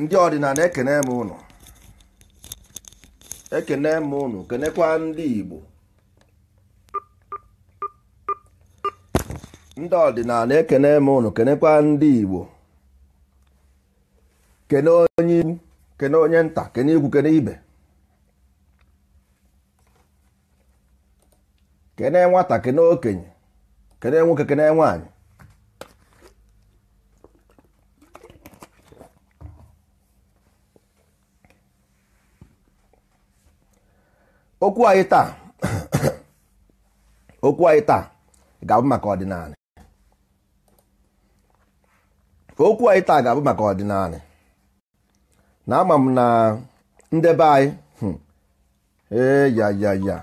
ndị ọdịnala ekene m ụnụ ekene m ụnụ kenekwa ndị Igbo ndị ọdịnala ekene m ụnụ kenekwa ndị Igbo kene onye ikwu kene onye nta kene ikwu kene ibe kene nwata kene okenye kene nwoke kene nwaanyị okwu anyị taa okwu ga-abụ maka ọdịnala okwu anyị taa ga-abụ maka ọdịnala na ama m na ndebe anyị hmm, eyayaya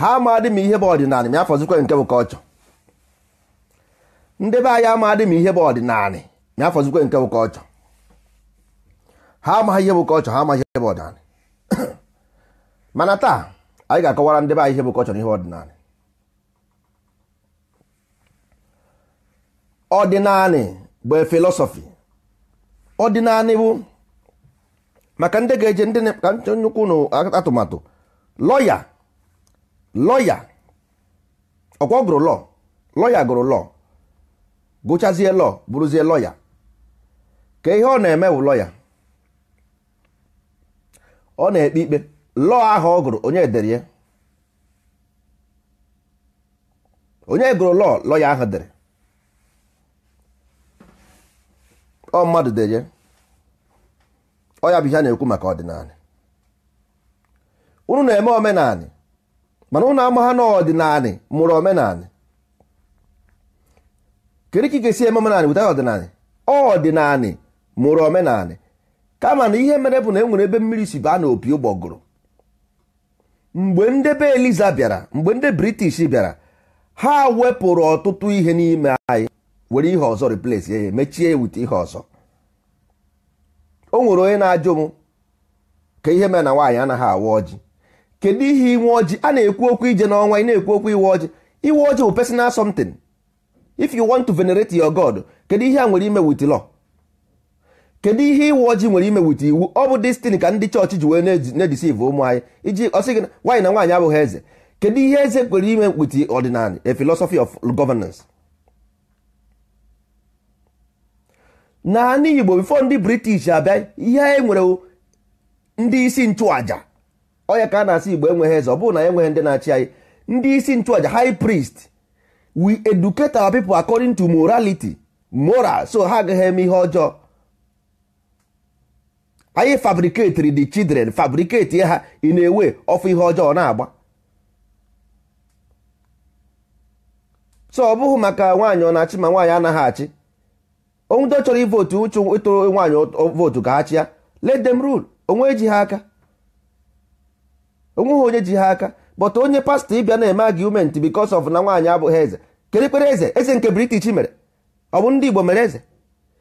ha amadị m ihe bụ ọdịnala ma nke bụ kọlchọ ndebe anyị amadị m ihe bụ ọdịnala ha amaghị ihe bụ kọlchọ ha amaghị ihe bụ ọdịnala mana taa anyị ga-akọwara ndị be anyị ihe bụ kọlchọ na ihe ọdịnala ọdịnala bụ filosofi ọdịnala bụ maka ndị ga-eje ndị ka nnukwu ụnụ atụmatụ lọya lọya ọkwọ gụrụ lọ lọya gụrụ lọ gụchazie lọ bụrụzie lọya ka ihe ọ na-eme bụ lọya ọ na-ekpe ikpe lọọ ahụ ọ gụrụ onye dere ya onye gụrụ lọọ lọya ahụ dere ọ mmadụ dere ya ọ ya bụ ihe na-ekwu maka ọdịnala unu na-eme omenanị mana unu amagha na ọdịnanị mụrụ omenanị kedu ka ị ga-esi eme omenanị weta ọdịnanị ọdịnanị mụrụ omenanị kama na ihe mere bụ na e nwere ebe mmiri si baa na opi ụgbọgụrụ mgbe ndị be eliza bịara mgbe ndị british bịara ha wepụrụ ọtụtụ ihe n'ime anyị were ihe ọzọ replace ya mechie wite ihe ọzọ o nwere onye na-ajụ m ka ihe mere na nwaanyị anaghị awa ọjị kedu ihe inwe ọjị a na-ekwu okwu ije n'ọnwa ị na-ekwu okwu iwe ọjị iwe ọjị bụ personal something if you want to venerate your god kedu ihe a nwere ime with law kedu ihe iwe ojii nwere ime iwu ọ bụ destin ka ndị chọọchị ji wee na-edisiv ụmụ anyị iji ọsị gị nwaanyị na nwaanyị abụghị eze kedu ihe eze kwere ime mkpiti ọdịnala a philosophy of governance naanị igbo bifo ndị british abịa ihe anyị nwere ndị isi nchụaja ọya ka a na-asị igbo enweghị eze ọ bụrụ na enweghị ndị na-achị anyị ndị isi nchụaja high priest we educate our people according to morality moral so ha agaghị eme ihe ọjọọ anyị fabriketiri the children fabriketi ha ị na-ewe ọfụ ihe ọjọọ na-agba so ọ bụghị maka nwaanyị ọ na-achị ma nwaanyị anaghị achị onwudo chọrọ ivotu uchu ịtụrụ nwaanyị vootu ka ha chịa let them rule onwe ji ha aka onweghị onye ji ha aka but onye pastọ ịbịa na-eme argument because of na nwaanyị abụghị eze kedụ eze eze nke british mere ọ bụ ndị igbo mere eze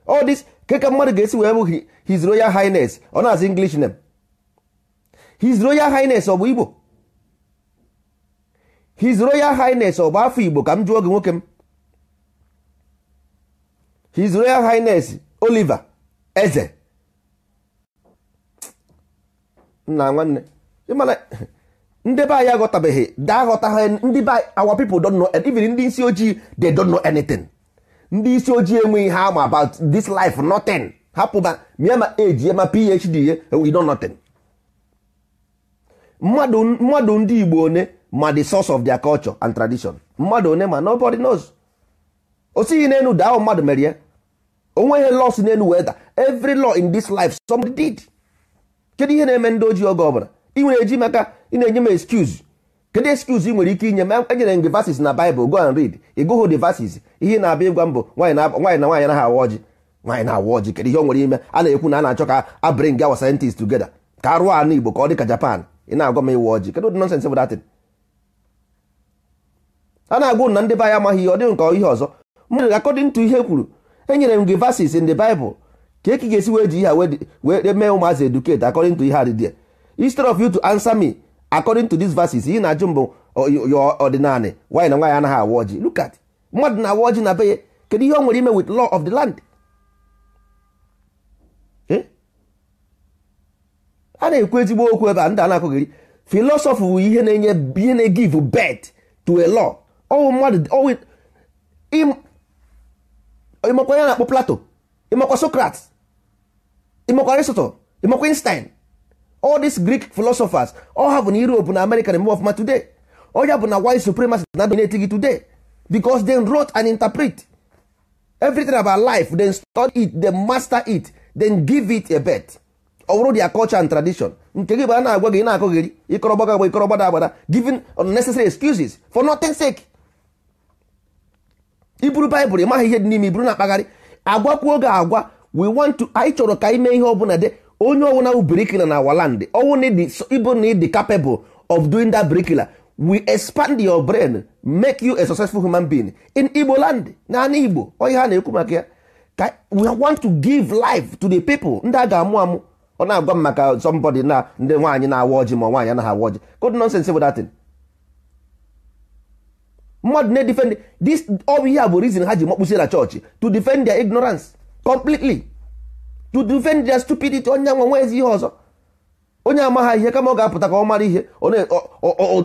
all this ke mmadụ ga-esi wee bụ his royal highness ọ na-asị english name his royal highness ọ bụ igbo his royal highness ọ bụ afọ igbo ka m jụọ gị nwoke m his royal highness oliver eze nna nwanne ịmana ndị be anyị aghọtabeghị daa aghọta ha ndị be our people don know even ndị isi ojii they don know anything ndị isi ojii enweghị ihe ama about this life nothing hapụba mịa ma eji ya ma phd ye we oh, know nothing mmadụ ndị igbo one ma the source of their culture and tradition mmadụ one ma nobody knows o sighi n'elu daa mmadụ mere ya onweghị los n'elu weda every law in this life somebody did kedu ihe na-eme ndị ojii oge ọbụla ị nwere eji maka ị na-enye m excuse kedu excuse ị nwere ike inye ma enyere gị verses na Bible go and read ị gụghụ the verses ihe na-abịa ịgwa mbụ nwaanyị na nwaanyị anaghị awa ọjị nwaanyị na-awa ọjị kedu ihe o nwere ime a na-ekwu na a na-achọ ka a bring our scientists together ka a rụọ ala Igbo ka ọ dị ka Japan ị na-agwa m ịwa ọjị kedu ụdị nonsense bụ datin a na-agwụ na ndị be anyị amaghị ihe ọ dịghị nke ihe ọzọ mmadụ according to ihe e kwuru enyere m gị verses in the Bible ka eki ga-esi wee ji ihe a wee mee ụmụazị educate according to ihe adịdị instead of you to answer me according to these verses ihe na-ajụ mbụ oh, ya ọdịnala nwaanyị na nwaanyị anaghị awa ọjị look at mmadụ na-awa ọjị na beye kedu ihe ọ nwere ime with law of the land eh? a na-ekwu ezigbo okwu ebe a ndị a na-akụghịrị philosophy wụ ihe na-enye ihe na-egive birth to a law ọwụ mmadụ ọwụ ịmakwa ya na-akpọ Plato ịmakwa Socrates ịmakwa Aristotle ịmakwa Einstein all these greek philosophers all have na europe na america na of ma today Oya bụ na white supremacy na dominate gị today because they wrote and interpret everything about life then study it then master it then give it a bet ọ bụrụ their culture and tradition nke gị bụ na-agwa gị na-akọgheri ịkọrọ gbaga agba ịkọrọ agbada giving unnecessary excuses for nothing sake iburu baịbụl ịmaghị ihe dị n'ime iburu na-akpagharị agwakwuo gị agwa we want to anyị chọrọ ka ime ihe ọ bụla de onye ọwụna bụ brikila na waland ọwụna ịbụ na ịdị capable of doing that brikila we expand your brain make you a successful human being in igbo land naanị igbo onye ha na-ekwu maka ya ka we want to give life to the people ndị a ga-amụ amụ ọ na-agwa m maka somebody na ndị nwaanyị na-awa ọjị ma nwaanyị anaghị awa ọjị good nonsense bụ datin mmadụ na-edefend this ọ bụ ihe a bụ reason ha ji makpụsi na chọọchị to defend their ignorance completely you defend their stupidity onye nwa nwa ezi ihe ọzọ onye amaghị ihe kama ọ ga-apụta ka ọ mara ihe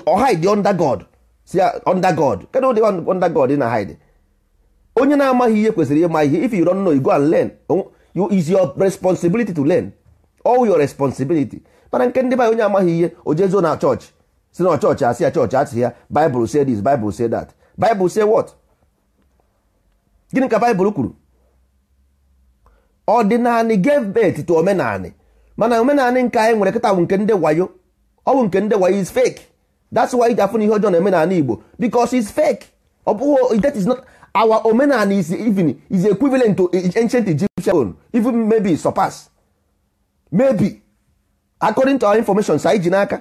ọ hide under God si uh, under God kedụ ụdị under God na hide onye na-amaghị ihe kwesịrị ịma ihe if you don't know you go and learn you is your responsibility to learn all your responsibility mana nke ndị be onye amaghị ihe o jezuo na chọọchị si na chọọchị asị ya chọọchị asị ya Bible say this Bible say that Bible say what gịnị ka Bible kwuru ọdịnanị gave birth to omenanị mana omenanị nke anyị nwere kịta bụ nke ndị wayo ọ bụ nke ndị wayo is fake that's why iji afụ na ihe ọjọọ na omenanị Igbo because it's fake ọ bụghị that is not our omenanị is even is equivalent to ancient Egyptian even maybe surpass maybe according to our information sa iji n'aka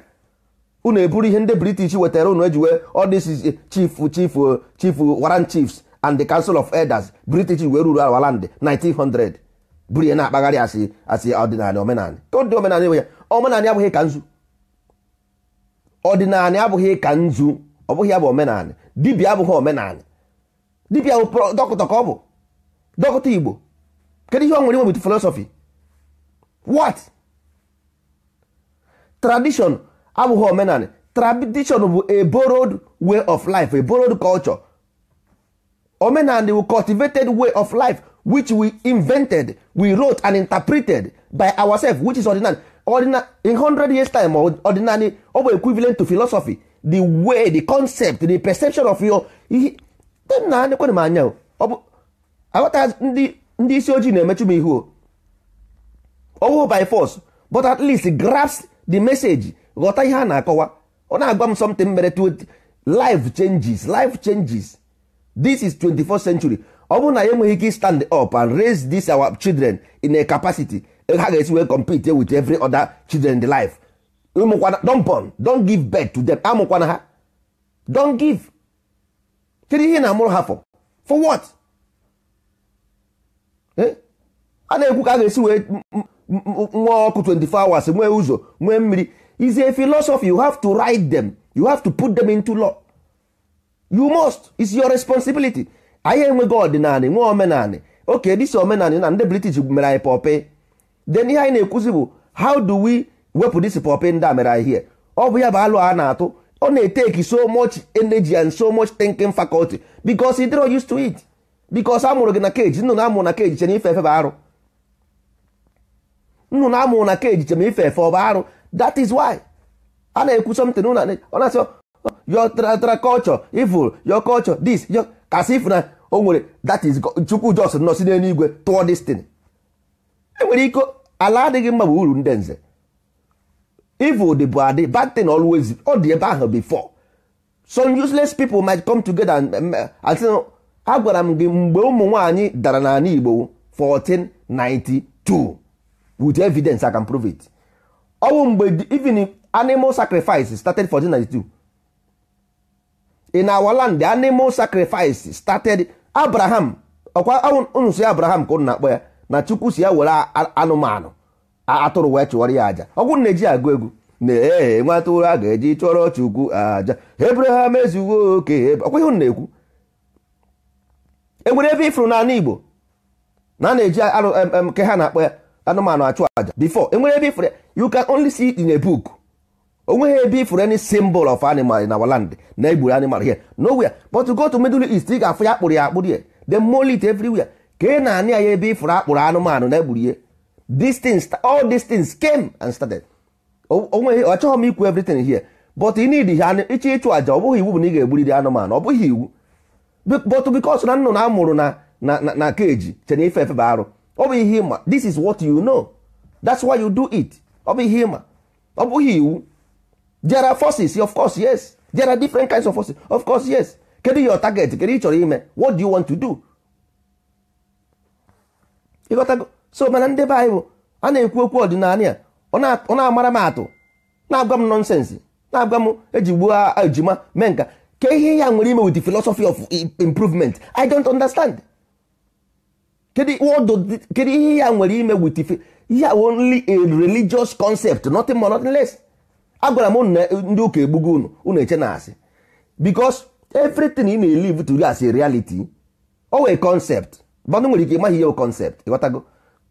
unu eburu ihe ndị British wetara unu ejiwe all this is eh, chief chief eh, chief warren chiefs and the council of elders British wee ruru our land 1900 buru ihe na-akpagharị asị asị ọdịnala omenala ka ọ dị omenala enwe ya omenala abụghị ka nzu ọdịnala abụghị ka nzu ọ bụghị ya bụ omenala dibịa abụghị omenala dibịa bụ dọkịta ka ọ bụ dọkịta igbo kedu ihe ọ nwere nwebit filosofi wat tradition abụghị omenala tradition bụ a borrowed way of life a borrowed culture omenala bụ cultivated way of life which we invented we wrote and interpreted by ourselves which is ordinary ordinary in 100 years time ordinary ọ bụ equivalent to philosophy the way the concept the perception of your na ekwenụ m anya ọ bụ aghọta ndị isi ojii na-emechu m ihu owo by force but at least grasp the message ghọta ihe a na-akọwa ọ na-agwa m something mere life changes life changes this is 24th century ọ bụrụ na ya enweghị ike stand up and raise this our children in a capacity ha ga-esi wee compete with every other children in the life ụmụkwana don born don give birth to them amụkwana ha don give kedu ihe na-amụrụ ha for for what eh? a na-ekwu ka a ga-esi wee nwa ọkụ 24 hours nwee ụzọ nwee mmiri is a philosophy you have to write them you have to put them into law you must it's your responsibility anyị enweghị ọdịnala nwee omenala oke dịsi omenala na ndị british mere anyị pọpị den ihe anyị na-ekwuzi bụ how do we wepụ dịsi pọpị ndị a mere anyị ọ bụ ya bụ alụ a na-atụ ọ na-eteki so much energy and so much thinking faculty because dịrọ used to it because amụrụ gị na keji nnụnụ amụrụ na keji chere ife efe bụ arụ nnụnụ amụrụ na keji chere ife efe ọ bụ arụ that is why a na-ekwu something ọ na-asị oh, your culture evil your culture this your as if na o nwere that is chukwu jos nọ si toward tụọ destin enwere iko ala adịghị mma bụ uru ndị nze evil dị bụ adị bad thing always ọ dị ebe ahụ before some useless people might come together and a gwara m gị mgbe ụmụ nwaanyị dara n'ala Igbo 1492 with evidence I can prove it ọ bụ mgbe even animal sacrifice started 1492 in our land the animal sacrifice started abraham ọkwa unu si abraham ka unu na-akpọ ya na chukwu si ya were anụmanụ atụrụ wee chụwara ya aja ọgwụ na-eji agụ egwu na-ee nwa a ga-eji chụọrọ chukwu aja abraham ezuwo oke ọkwa ihe na-ekwu enwere ebe ifuru n'ala igbo na a na-eji ke ha na-akpọ ya anụmanụ achụ aja before enwere ebe ifuru you can only see it in a book onweghị ebe ifuru any symbol of animal in our land na egburu animal here nowhere but to go to middle east ị ga-afụ ya akpụrụ ya akpụrụ ya the molit everywhere ka ị na-anị ya ebe ifuru akpụrụ anụmanụ na egburu ya these all these came and started onweghị ọchọghị m ikwu everything here but ị need ha ịchọ ịchụ aja ọ bụghị iwu bụ na ị ga-egburiri anụmanụ ọ bụghị iwu but because na nnụnụ amụrụ na na na keji chena ife efe bụ arụ ọ bụ ihe ịma this is what you know that's why you do it ọ bụ ihe ịma ọ bụghị iwu there are forces of course yes there are different kinds of forces of course yes kedu your target kedu ị chọrọ ime what do you want to do ịghọtago so mana ndị be anyị bụ a na-ekwu okwu ọdịnala ya ọ na-amara m atụ na-agwa m nọnsensị na-agwa m ejigbu gbuo ejima mee nka ka ihe ya nwere ime with the philosophy of improvement i don't understand kedu ihe ya nwere ime with the ya only a religious concept nothing more nothing less agwara m ndị ụka egbugo unu unu eche na asị because everything ị na-elive to as a reality o wee concept bandụ nwere ike ịmaghị ihe o concept ịghọtago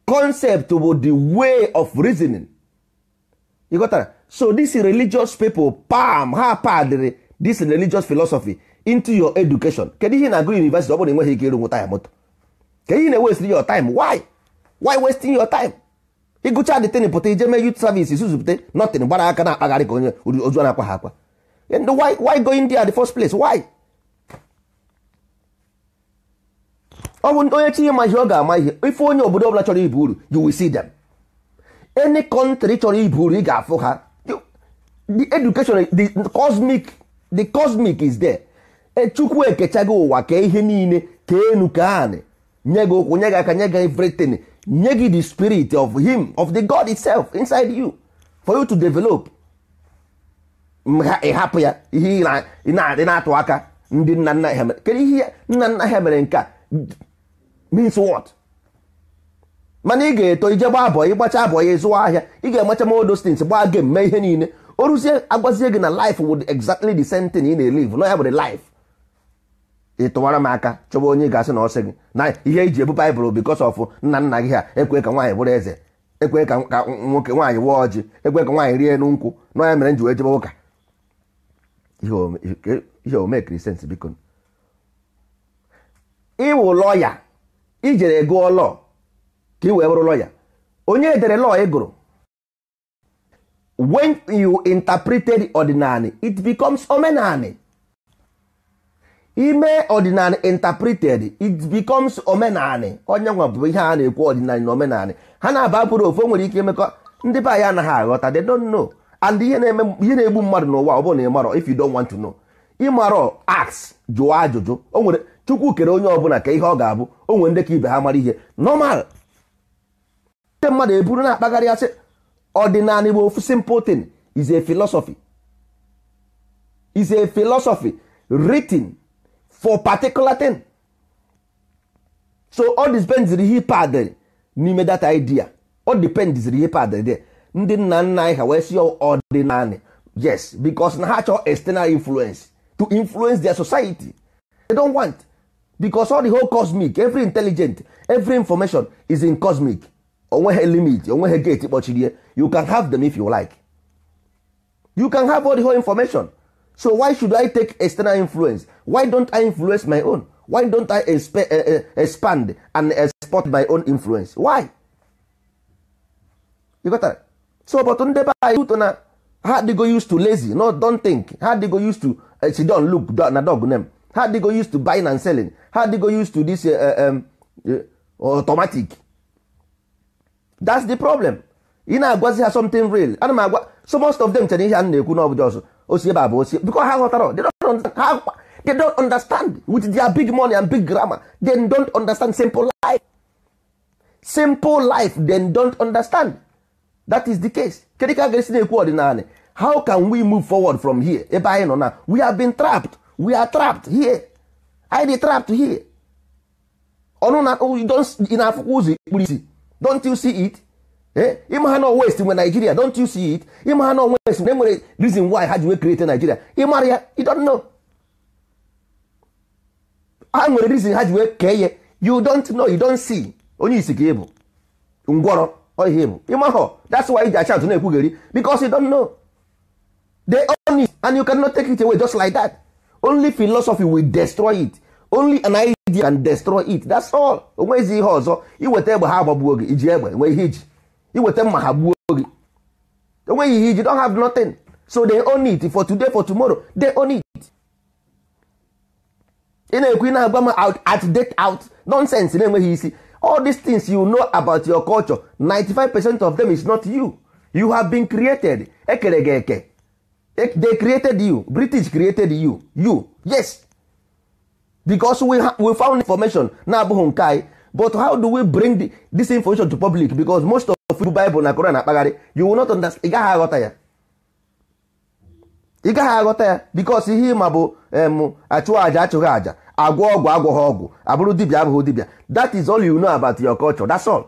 concept bụ the way of reasoning ịghọtara so this religious people palm ha padịrị this religious philosophy into your education kedu ihe na-agụ university ọ bụrụ na enweghị ike ịrụ nwụta ya moto kedu ihe na-ewestiri your time why why wasting your time ịgụcha dịtịn pụta ije mee youth service suzupụta nothing gbara aka na akpagharị ka onye ozu na-akwa ha akwa and why why go India the first place why ọ bụ onye chi ịma ihe ọ ga-ama ihe ife onye obodo ọbụla chọrọ ibu uru you will see them any country chọrọ ibu uru ị ga-afụ ha the education the cosmic the cosmic is there echukwu ekechago ụwa kee ihe niile kee enu ka anị nye gị ụkwụ nye gị aka nye gị everything nye gị the spirit of him of the god itself inside you for you to develop ịhapụ eh, ya ihe ị na atụ aka ndị nna nna ha mere ihe nna nna ha mere nke a means what mana ị ga-eto ije abụọ ị ịgbacha abụọ ya zụwa ahịa ị ga-enwecha ma odostins gbaa gem mee ihe niile o ruzie agwazie gị na life would exactly the same thing ị na-elive no ya bụ life ị tụwara m aka chọba onye ga-asị na ọsị gị na ihe iji ebu baịbụl bikos ọf nna nna gị ha ekwe ka nwaanyị bụrụ eze ekwe ka nwoke nwaanyị wụọ ọjị ekwe ka nwaanyị rie n'ụkwụ, nkwụ na ya mere m ji jebe ụka ihe omekiri sens biko ịwụ lọya ijere gụọ lọ ka ị wee bụrụ lọya onye edere lọ ị gụrụ when you interpreted ordinary it becomes omenani ime ọdịnala intapreted it omenali omenanị onye nwa bụ ihe a na-ekwu ọdịnala na omenanị ha na-aba bụrụ ofu nwere ike imekọ ndị be anyị anaghị aghọta they don't know and ihe na-egbu mmadụ n'ụwa ọ bụrụ na ị marọ if you don't want to know ịmarọ ask jụọ ajụjụ o nwere chukwu kere onye ọbụla ka ihe ọ ga-abụ o nwere ndị ka ibe ha mara ihe normal ndị mmadụ eburu na-akpagharị asị ọdịnala igbo ofu simple thing is a philosophy is a philosophy for particular thing so all depends ihe padịrị n'ime data idea all depends ihe padịrị there ndị nna nna anyị ha wee si ọdịnanị yes because na ha chọọ external influence to influence their society they don't want because all the whole cosmic every intelligent every information is in cosmic onweghị limit onweghị gate kpọchiri you can have them if you like you can have all the whole information so why should i take external influence why don't i influence my own why don't i eh, eh, expand and export my own influence why you got that? so but ndị be anyị ụtọ na ha go used to lazy no don't think ha go used to uh, eh, sit down look na dog name ha go used to buying and selling ha go used to this uh, um, uh, automatic that's the problem ị na-agwazi ha something real ana m agwa so most of them chere ihe a na-ekwu n'ọbụjọ ọzọ osi ebe a bụ osi because ha ghọtara they don't understand with their big money and big grammar they don't understand simple life simple life they don't understand that is the case kedu ka a ga-esi na-ekwu ọdịnala how can we move forward from here ebe anyị nọ na we have been trapped we are trapped here I dey trapped here ọnụ na oh, don't. na-afụkwa ụzọ ikpuru don't you see it ịma eh? ha na west nwe Nigeria don't you see it ịma ha na west na enwere reason why ha ji wee create Nigeria ịmara ya you don't know ha nwere reason ha ji wee kee ya you don't know you don't see onye isi ka ịbụ ngwọrọ oyi ịbụ ịmahọ that's why iji achantụ na-ekwugheri because you don't know they own it and you cannot take it away just like that only philosophy will destroy it only an idea can destroy it that's all onwezi ihe ọzọ iweta egbe ha agbagbuo gị iji egbe nwee ihe iji iweta mma ha gbuo gị enweghị ihe iji have nothing so they own it for today for tomorrow they own it ị na-ekwu ị na-agba m out at date out nonsense na-enweghị isi all these things you know about your culture 95 percent of them is not you you have been created ekere gị eke e, they created you british created you you yes because we, we found information na abụghị nke anyị but how do we bring the, this information to public because most of ofu baịbụl na koran akpagharị you will not understand ị gaghị aghọta ya ị gaghị aghọta ya bikos ihe ịma bụ em achụghị aja achụghị aja agwọ ọgwụ agwọghị ọgwụ abụrụ dibịa abụghị dibịa that is all you know about your culture that's all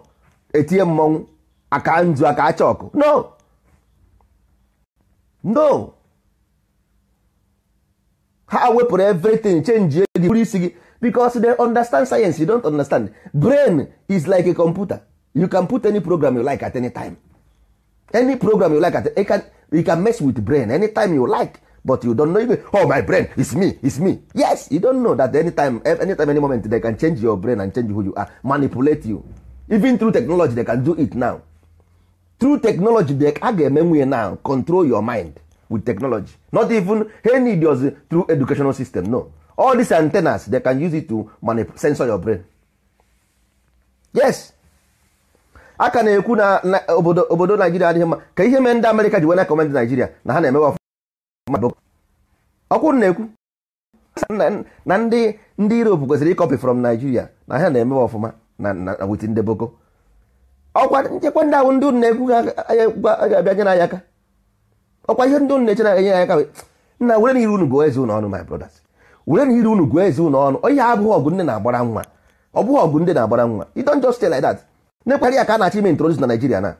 etinye mmọnwụ aka nzu aka acha ọkụ no no ha wepụrụ everything change gị bụrụ isi gị bikos they understand science you don't understand brain is like a computer you can put any program you like at any time any program you like at you can, you can mess with brain anytime you like but you don't know even, oh my brain is me is me yes you don't know that anytime eh, anytime any moment they can change your brain and change who you are manipulate you even through technology they can do it now through technology they a ga-eme now control your mind with technology not even any idios through educational system no all these antennas they can use it to manipulate censor your brain yes a ka na-ekwu na obodo naijiria adịghị mma ka ihe mee ndị amerịka ji wena kọmend naijiria na ha na-emewe ọkwụrụ na-ekwu na ndị ndị europe kwesịrị ịkọpị from naijiria na ha na-emewe ọfụma na wit ndị boko ọkwa nchekwa ndị ahụ ndị ụnụ na-ekwu ga ga-abịa nye n'anya aka ọkwa ihe ndị ụnụ na-eche na-enye ya aka nna were n'ire unu gụọ eze unu ọnụ my brothers were n'ire unu gụọ eze unu ọnụ ihe abụghị ọgụ nne na-agbara nwa ọ bụghị ọgụ ndị na-agbara nwa you just stay like that na ya ka a na-achọ ime introduce na Naịjirịa na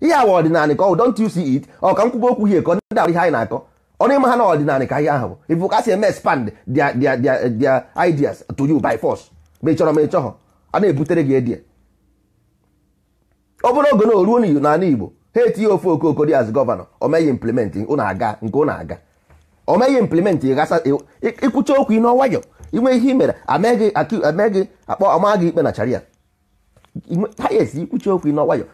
ihe awa ọdịnala ka ọ don't you see it ọ ka nkwụba okwu hie ka ọ ndị ahụ ihe anyị na-akọ ọnụ ịma ha na ọdịnala ka ihe ahụ bụ ka si eme expand dia their their ideas to you by force ma ị chọrọ ma ị chọghọ a na-ebutere gị edie ọ bụrụ oge na oruo n'ala Igbo ha etinye ofe okooko dị as gọvanọ omeghị implement ụnụ aga nke ụna aga omeghị implement ịkwụcha okwu ị n'ọnwayọ inwe ihe i mere ameghị akpọ ọma gị ikpe na charia highest ikwuchi okwu ịnọ nwayọ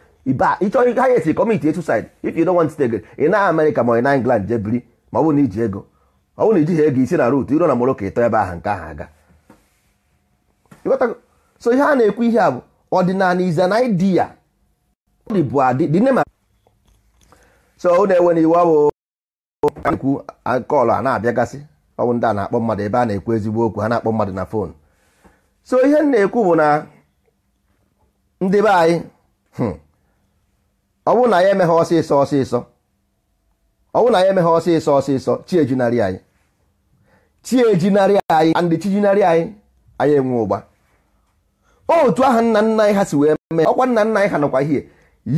ịchọghị highest kọmiti etusaid if you don't want to take ị na amerịka ma ị na england jee biri ma ọ bụrụ na iji ego ọ bụ na ijighị ego isi na rut iro na moroko ịtọ ebe aha nke ahụ aga so ihe a na-ekwu ihe a bụ ọdịnala is an idea bụ adị dị nema so ọ na-enwe na iwu ọ bụ ekwu kọlụ a na-abịagasị ọ bụ ndị a na-akpọ mmadụ ebe a na-ekwu ezigbo okwu ha na-akpọ mmadụ na fon so ihe m na-ekwu bụ na ndị be anyị hmm, ọ bụrụ na ya emeghe ọsịsọ ọsịsọ ọ bụrụ na ya emeghe ọsịsọ ọsịsọ chi ejinarị anyị chi ejinarị anyị andị chi jinarị anyị anyị enwe ụgba otu aha nna nna anyị ha si wee mee ọkwa nna nna anyị ha nọkwa hie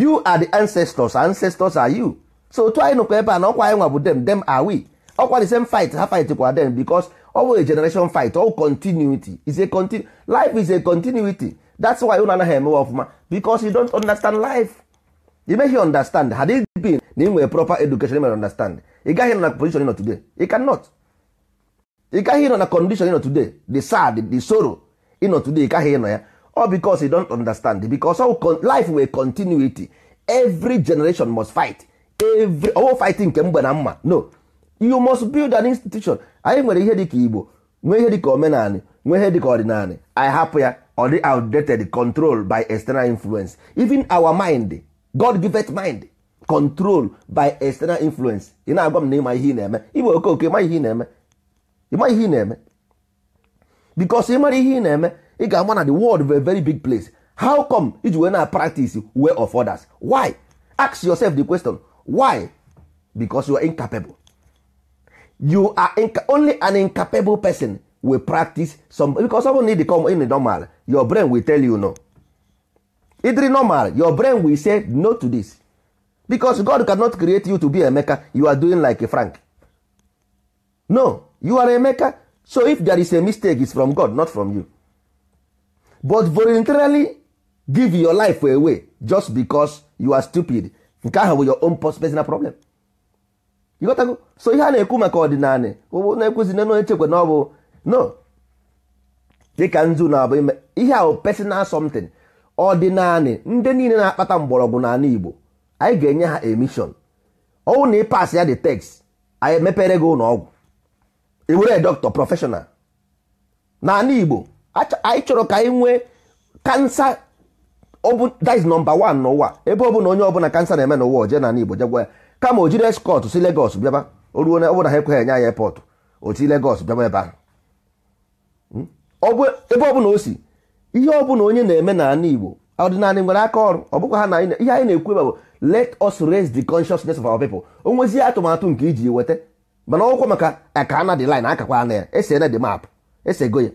you are the ancestors ancestors are you so otu anyị nọkwa ebe a na ọkwa anyị nwa bụ dem dem are we ọkwa the same fight ha fight kwa dem because ọ bụ a generation fight all continuity is a continu life is a continuity that's why unu anaghị emewe ọfụma because you don't understand life you make you understand had it been na ị proper education mere understand ị gaghị na position nọ today ị cannot ị gaghị nọ na condition nọ today the sad the sorrow ịnọ today ị gaghị nọ ya all because you don't understand because all life were continuity every generation must fight every owo oh, fighting nke mgbe na mma no you must build an institution anyị nwere ihe ka igbo nwee ihe dịka omenanị nwee ihe dịka ọdịnanị anyị hapụ ya Body outdated control by external influence even our mind god giveth mind control by external influence ị na-agwa m na ịma ihe ị na-eme iwe okoke ịma ihe ị na-eme ịma ihe ị na-eme because ịmara ihe ị na-eme ị ga-ama na the world bụ a very big place how come iji wee na practice way of others why ask yourself the question why because you are incapable you are inca only an incapable person we practice some because something need to come in normal your brain will tell you no idri normal your brain will say no to this because god cannot create you to be emeka you are doing like a frank no you are emeka so if there is a mistake it's from god not from you but voluntarily give your life away just because you are stupid nke ahụ bụ your own personal problem you got to go so ihe a na-ekwu maka ọdịnala na-ekwuzi na echekwa na ọ bụ no dịka nzu na-abụ ihe ahụ personal something naanị ndị niile na-akpata mgbọrọgwụ n'ala Igbo anyị ga-enye ha emishon ọnwụ na ịpas ya dị text anyị mepere gị ụlọ ọgwụ ewere dọkịta prọfeshọnal n'ala Igbo anyị chọrọ ka anyị nwee kansa that is number one n'ụwa ebe ọ bụla onye ọbụla kansa na-eme n'ụwa oje n'ala Igbo jegwa ya kama o eskọt si legos bịaba o ruo na ọ bụla ha ekweghị enye anyị epọtụ o si bịaba ebe ahụ Hmm? ebe ọbụla o si ihe ọbụla onye na-eme na n'ala Igbo ọdịnala nwere aka ọrụ ọ bụkwa ha na ihe anyị na-ekwu ebe bụ let us raise the consciousness of our people o nwezie atụmatụ nke iji weta mana ọkwa maka aka na dị line akakwa ana ya ese na dị map esego ya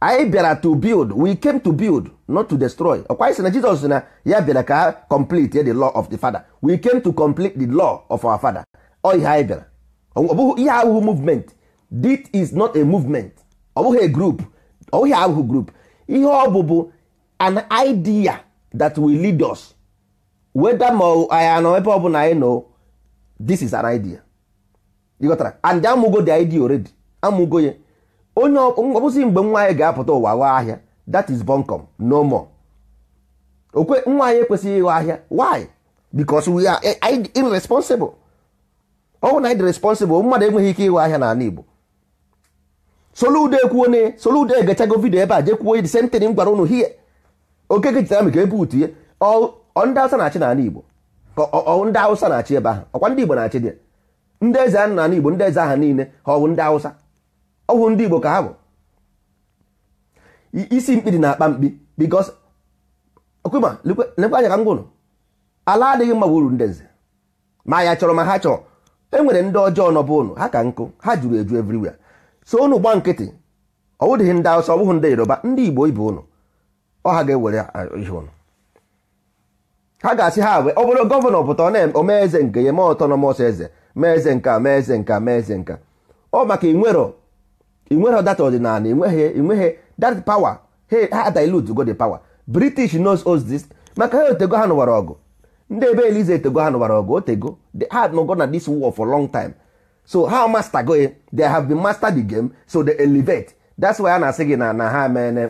anyị bịara to build we came to build not to destroy ọkwa anyị sị na Jizọs na ya bịara ka ha complete the law of the father we came to complete the law of our father ọ ihe anyị bịara ọ bụghị ihe ahụhụ movement this is not a movement ọ bụghị a group ọ bụghị ahụ group ihe ọ bụ bụ an idea that will lead us whether ma anyị nọ ebe ọ bụ na anyị nọ this is an idea ịghọtara and amụgo the idea already amụgo ya onye ọbụzi mgbe nwa anyị ga-apụta ụwa gha ahịa that is bunkum no more okwe nwa anyị ekwesịghị ịghọ ahịa why because we are irresponsible ọ bụ na anyị dị responsible mmadụ enweghị ike ịghọ ahịa n'ala Igbo Soludo ekwuo ne Soludo egechago vidio ebe a jekwuo the same thing m gwara ụnụ hie okeke jitamik ebutu ihe ndị Hausa na-achị n'ala Igbo ndị awụsa na-achị ebe ahụ ọkwa ndị Igbo na-achị dị ndị eze ahụ n'ala Igbo ndị eze aha niile ha ọwụ ndị awụsa ọwụ ndị Igbo ka ha bụ isi mkpi dị na-akpa mkpi because okwema lekwa anya ka m gwụrụ ala adịghị mma wuru ndị nze ma ya chọrọ ma ha chọrọ e nwere ndị ọjọọ nọbụ ụnụ ha ka nkụ ha jụrụ eju everywhere so unu gba nkịtị ọ wụdịghị ndị awụsa ọ bụghị ndị yoruba ndị igbo ibe unu ọ ha ga-ewere ihe unu ha ga-asị ha wee ọ bụrụ gọvanọ pụta omee eze nke ya mee ọtọnọmọs eze mee eze nka mee eze nka mee eze nka ọ maka ịnwero, ịnwero data ọdịnala ịnweghị, ịnweghị, dat power ha dilute go the pawa. british knows us this maka ha otego ha nụwara ọgụ ndị ebe elize etego ha nụwara ọgụ otego ha nọgo na this so ha master go they have been master the game so they elevate that's why a na-asị gị na na ha mene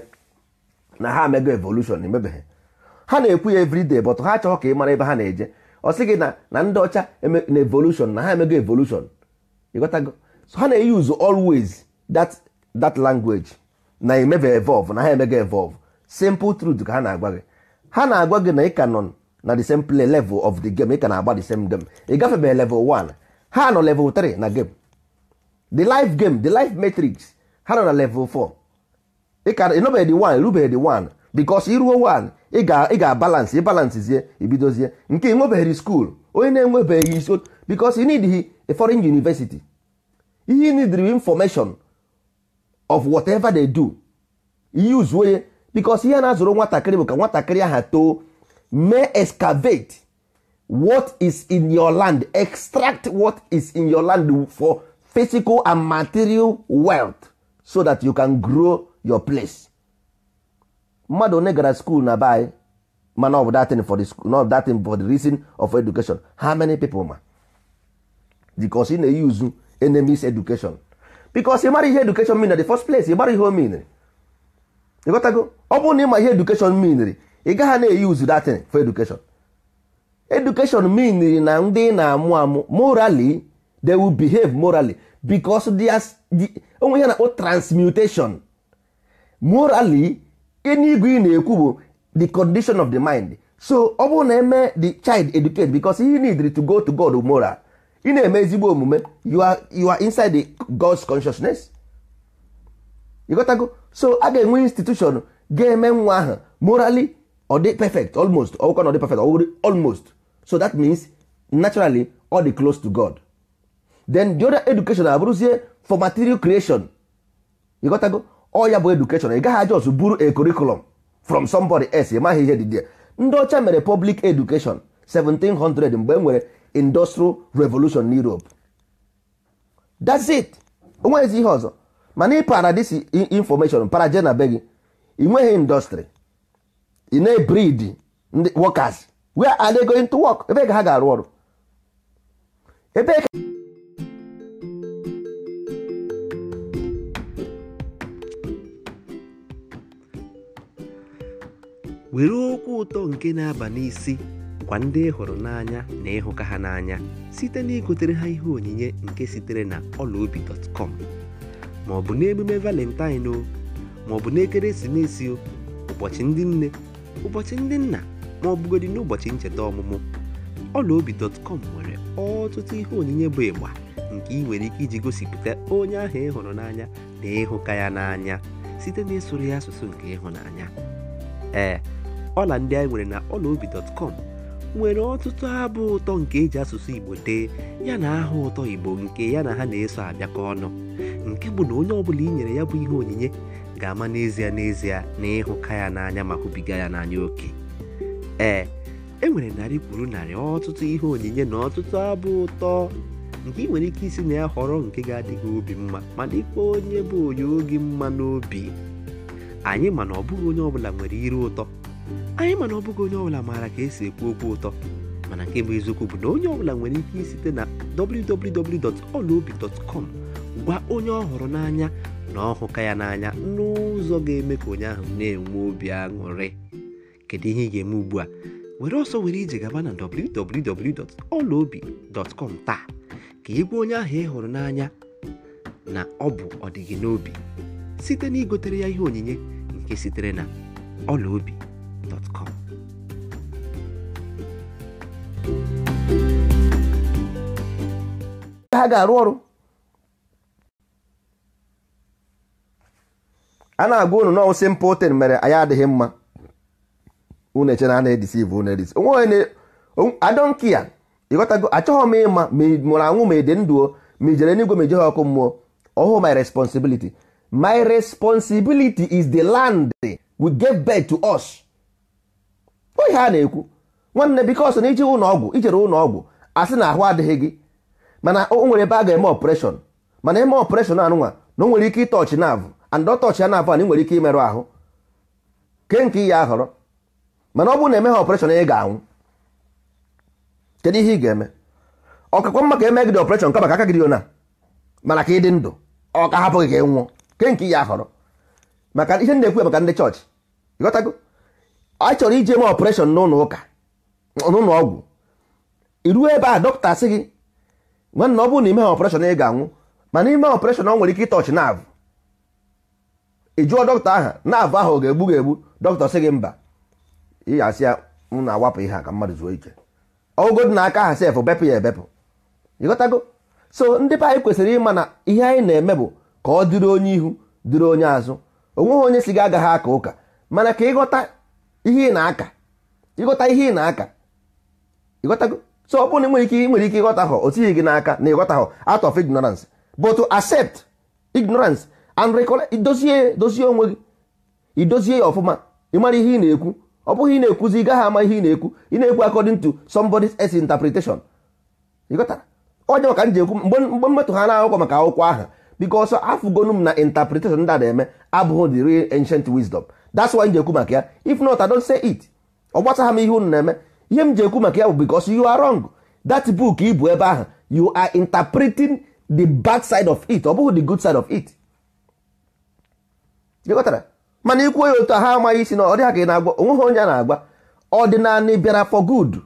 na ha mego evolution emebeghị ha na-ekwu ya everyday but ha chọrọ ka ị mara ebe ha na-eje ọ sị gị na na ndị ọcha na evolution na ha emego evolution ịghọtago so ha na-eyuzu always that that language na emebe evolve na ha emego evolve simple truth ka ha na-agwa gị ha na-agwa gị na ị ka nọ na the same play level of the game ị ka na-agba the same game ị gafebeghị level one. ha nọ level 3 na game the life game the life matrix ha nọ na level 4 ịnọbeghị dị 1 rubeghị dị 1 bikos iruo 1 ị ga-abalance ịbalansizie ibidozie nke ịnwebeghị skuul onye na-enwebeghị isi bikos ị e need a foreign university ihe nidri information of whatever they do ihe use ye bikos ihe na-azụrụ nwatakịrị bụ ka nwatakịrị aha too mee excavate what is in your land extract what is in your land for physical and material wealth so that you can grow your place mmadụ one gara school na by mana ọ bụ datin for the datin for the reason of education how many people ma because ị na-use enemies education because ị mara ihe education mean na the first place ị marry ihe o mean ịghọtago ọ bụrụ na ị ma ihe education mean ị gaghị na-eyuzu datin for education education mean na ndị na-amụ amụ morally they will behave morally because onwe ihe na-akpọ transmutation morally enigwe ị na-ekwu bụ the condition of the mind so ọ bụrụ na eme the child educate because he need to go to God moral ị na-eme ezigbo omume you are you are inside the God's consciousness go so a ga-enwe institution ga-eme nwa ahụ morally ọ dị perfect almost ọkwa na ọ dị perfect almost so that means naturally all the close to god then the other education abụrụzie for material creation you go ọ ya bụ education ị gaghị ọzụ buru a curriculum from somebody else ị maghị ihe dị there ndị ọcha mere public education 1700 mgbe e nwere industrial revolution na europe that's it onwezi ihe ọzọ mana ị para this information para je ị nweghị industry ị na-ebrid ndị workers where are they going to work ebe ha ga-arụ ọrụ ebe were okwu ụtọ nke na-aba n'isi gwa ndị hụrụ n'anya na ịhụka ha n'anya site na igotere ha ihe onyinye nke sitere na ọlaobi.com ma ọ n'emume valentine o ma n'ekeresimesi o ụbọchị ụbọchị ndị nna ma ọ bụgodị n'ụbọchị ncheta ọmụmụ ọlaobi.com nwere ọtụtụ ihe onyinye bụ ịgba nke ị nwere ike iji gosipụta onye ahụ ị hụrụ n'anya na ịhụka ya n'anya site na ịsụrụ ya asụsụ nke ịhụnanya ee ọla ndị anyị nwere na ọlaobi.com nwere ọtụtụ abụ ụtọ nke eji asụsụ igbo dee ya na aha ụtọ igbo nke ya na ha na-eso abịakọ ọnụ nke bụ na onye ọbụla i nyere ya bụ ihe onyinye ga-ama n'ezie n'ezie na ịhụka ya n'anya ma hụbiga ya n'anya oke Ee, e nwere narị kwuru narị ọtụtụ ihe onyinye na ọtụtụ abụ ụtọ nke ị nwere ike isi na ya họrọ nke ga-adị gị obi mma ma dịkwa onye bụ onye oge mma n'obi anyị mana ọ bụghị onye ọbụla nwere iru ụtọ anyị mana ọ bụghị onye ọbụla maara ka esi ekwu okwu ụtọ mana nke bụ eziokwu bụ na onye ọbụla nwere ike isite na www.olaobi.com gwa onye ọ n'anya na ọhụka ya n'anya n'ụzọ ga-eme ka onye ahụ na-enwe obi aṅụrị kedu ihe ị ga-eme ugbu a were ọsọ were ije gaba na www.olaobi.com taa ka ị onye ahụ ị hụrụ n'anya na ọ bụ ọdịgị n'obi site na igotere ya ihe onyinye nke sitere na ọla ha ga-arụ ọrụ a na-agwa unu na simple tin mere anyị adịghị mma unu eche na a na-edisiv unu edisi onwe adọnkiya ịghọtago achọghọ m ịma ma mụrụ anwụ ma ede ndụ o ma ijere n'igwe ma ijeghe ọkụ mmụọ ọhụ my responsibility my responsibility is the land we gave birth to us oyi a na-ekwu nwanne bikos na iji ụlọ ọgwụ ijere ụlọ ọgwụ asị na ahụ adịghị gị mana o nwere ebe a ga-eme ọpreshọn mana eme ọpreshọn anụnwa na o nwere ike ịtọọchị naavụ and ọ tọọchị ya naavụ a na ị nwere ike imerụ ahụ ke nke ihe a họrọ mana ọ bụrụ na emeghị ọpreshọn ị ga-anwụ kedu ihe ị ga-eme ọkakwa mma ka eme gị dị ọpreshọn kama ka aka gị dị mana ka ị dị ndụ ọ ka hapụ gị ka ị nwụọ ke nke ya họrọ maka ihe ndị ekwu maka ndị chọọchị ịghọtago a chọrọ ije eme ọpreshọn n'ụlọ ụka n'ụlọ ọgwụ iruo ebe a dọkịta sị gị nwanna ọ bụrụ na imeghị ọpreshọn ị ga-anwụ mana ime ọpreshọn ọ nwere ike ịtọchị naavụ ị jụọ dọkịta aha naavụ ahụ ọ ga-egbu ga-egbu dọkịta sị gị mba ị asị ya m na-awapụ ihe a ka mmadụ zuo ike ọgụgụ na aka ha sef bepụ ya ebepụ ịghọtago so ndị be anyị kwesịrị ịma na ihe anyị na-eme bụ ka ọ dịrị onye ihu dịrị onye azụ onweghị onye si gị agaghị aka ụka mana ka ịghọta ihe ị na-aka ịghọta ihe ị na-aka ịghọtago so ọ bụrụ na nwere ike nwere ike ịghọta hụ o tighị gị n'aka na ịghọta hụ out of ignorance but to accept ignorance and recollect idozie dozie onwe gị idozie ya ọfụma ịmara ihe ị na-ekwu ọ bụghị ị na-ekwuzi ị gaghị ama ihe ị na-ekwu ị na-ekwu according to somebody's else interpretation ịghọtara onye maka m ji ekwu mgbe mmetụ ha na-akwụkwọ maka akwụkwọ aha because afụgonu m na interpretation ndị a na-eme abụghị the real ancient wisdom that's why m ji ekwu maka ya if not I don't say it ọ gbasagha m ihe unu na-eme ihe m ji ekwu maka ya bụ because you are wrong that book bụ ebe ahụ you are interpreting the bad side of it ọ bụghị the good side of it ịghọtara mana ikwuo ya otu ha amaghị isi na ọ dịghị ka ị na-agwa onweghị onye a na-agwa ọdịnala bịara for good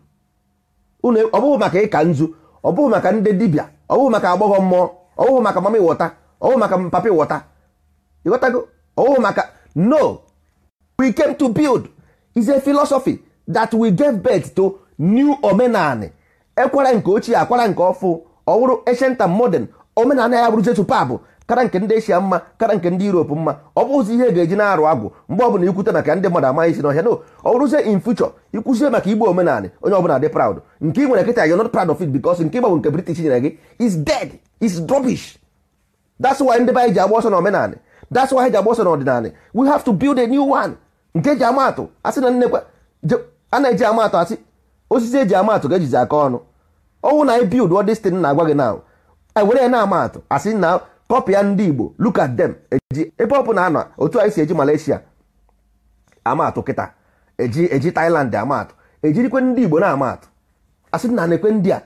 ọ bụghị maka ịka nzu ọ bụghị maka ndị dibịa ọ bụghị maka agbọghọ mmụọ ọ bụghị maka mama ịwọta ọ maka papa ịwọta ịghọtago ọ maka no we came to build is a philosophy that we gave birth to new omenani ekwara nke ochie akwara nke ọfụ ọ bụrụ ancient modern omenala ya bụrụzie tupabụ kara nke ndị eshia mma kara nke ndị europe mma ọ bụghịzi ihe ga-eji na-arụ agwụ mgbe ọbụla ikwute maka ndị mmadụ amaghị isi n'ọhịa no ọ bụrụzie in future ikwuzie maka igbo omenala onye ọbụla dị proud nke ị nwere kịta you're not proud of it because nke ịgbanwe nke british nyere gị is dead is rubbish that's why ndị be anyị ji agba ọsọ n'omenala that's why ji agba ọsọ n'ọdịnala we have to build a new one nke e ji amatụ asị na nnekwa a na-eji amatụ asị osisi eji amatụ ga-ejizi aka ọnụ ọnwụ na anyị build ọ na-agwa gị na e were ya na amatụ asị na kọpịa ndị igbo look at them eji ebe ọ bụla anọ otu anyị si eji malaysia amaatụ kịta eji eji thailand amaatụ ejirikwe ndị igbo na-amaatụ asị na na ndị a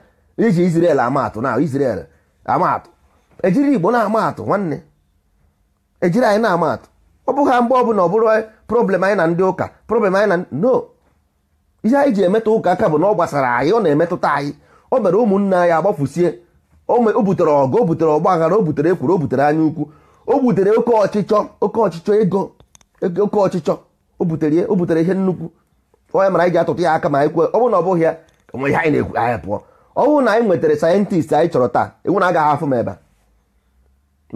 iji israel amaatụ na israel amaatụ ejiri igbo na-amaatụ nwanne ejiri anyị na-amaatụ ọ bụghị ha mgbe ọbụla ọ bụrụ problem anyị na ndị ụka problem anyị na no ihe anyị ji emetụ ụka aka bụ na ọ gbasara anyị ọ na-emetụta anyị o mere ụmụnne anyị agbafusie o butere ọgụ o butere ọgba o butere ekwuru o butere anya ukwu o butere oke ọchịchọ oke ọchịchọ ego oke ọchịchọ o butere o butere ihe nnukwu onye mara anyị ji atụtụ ya aka ma anyị kwe ọ bụrụ na ọ bụghị ya onwe ihe anyị na-ekwu anyị pụọ ọ bụrụ na anyị nwetara sayentist anyị chọrọ taa enwere agaghị afụ m ebe a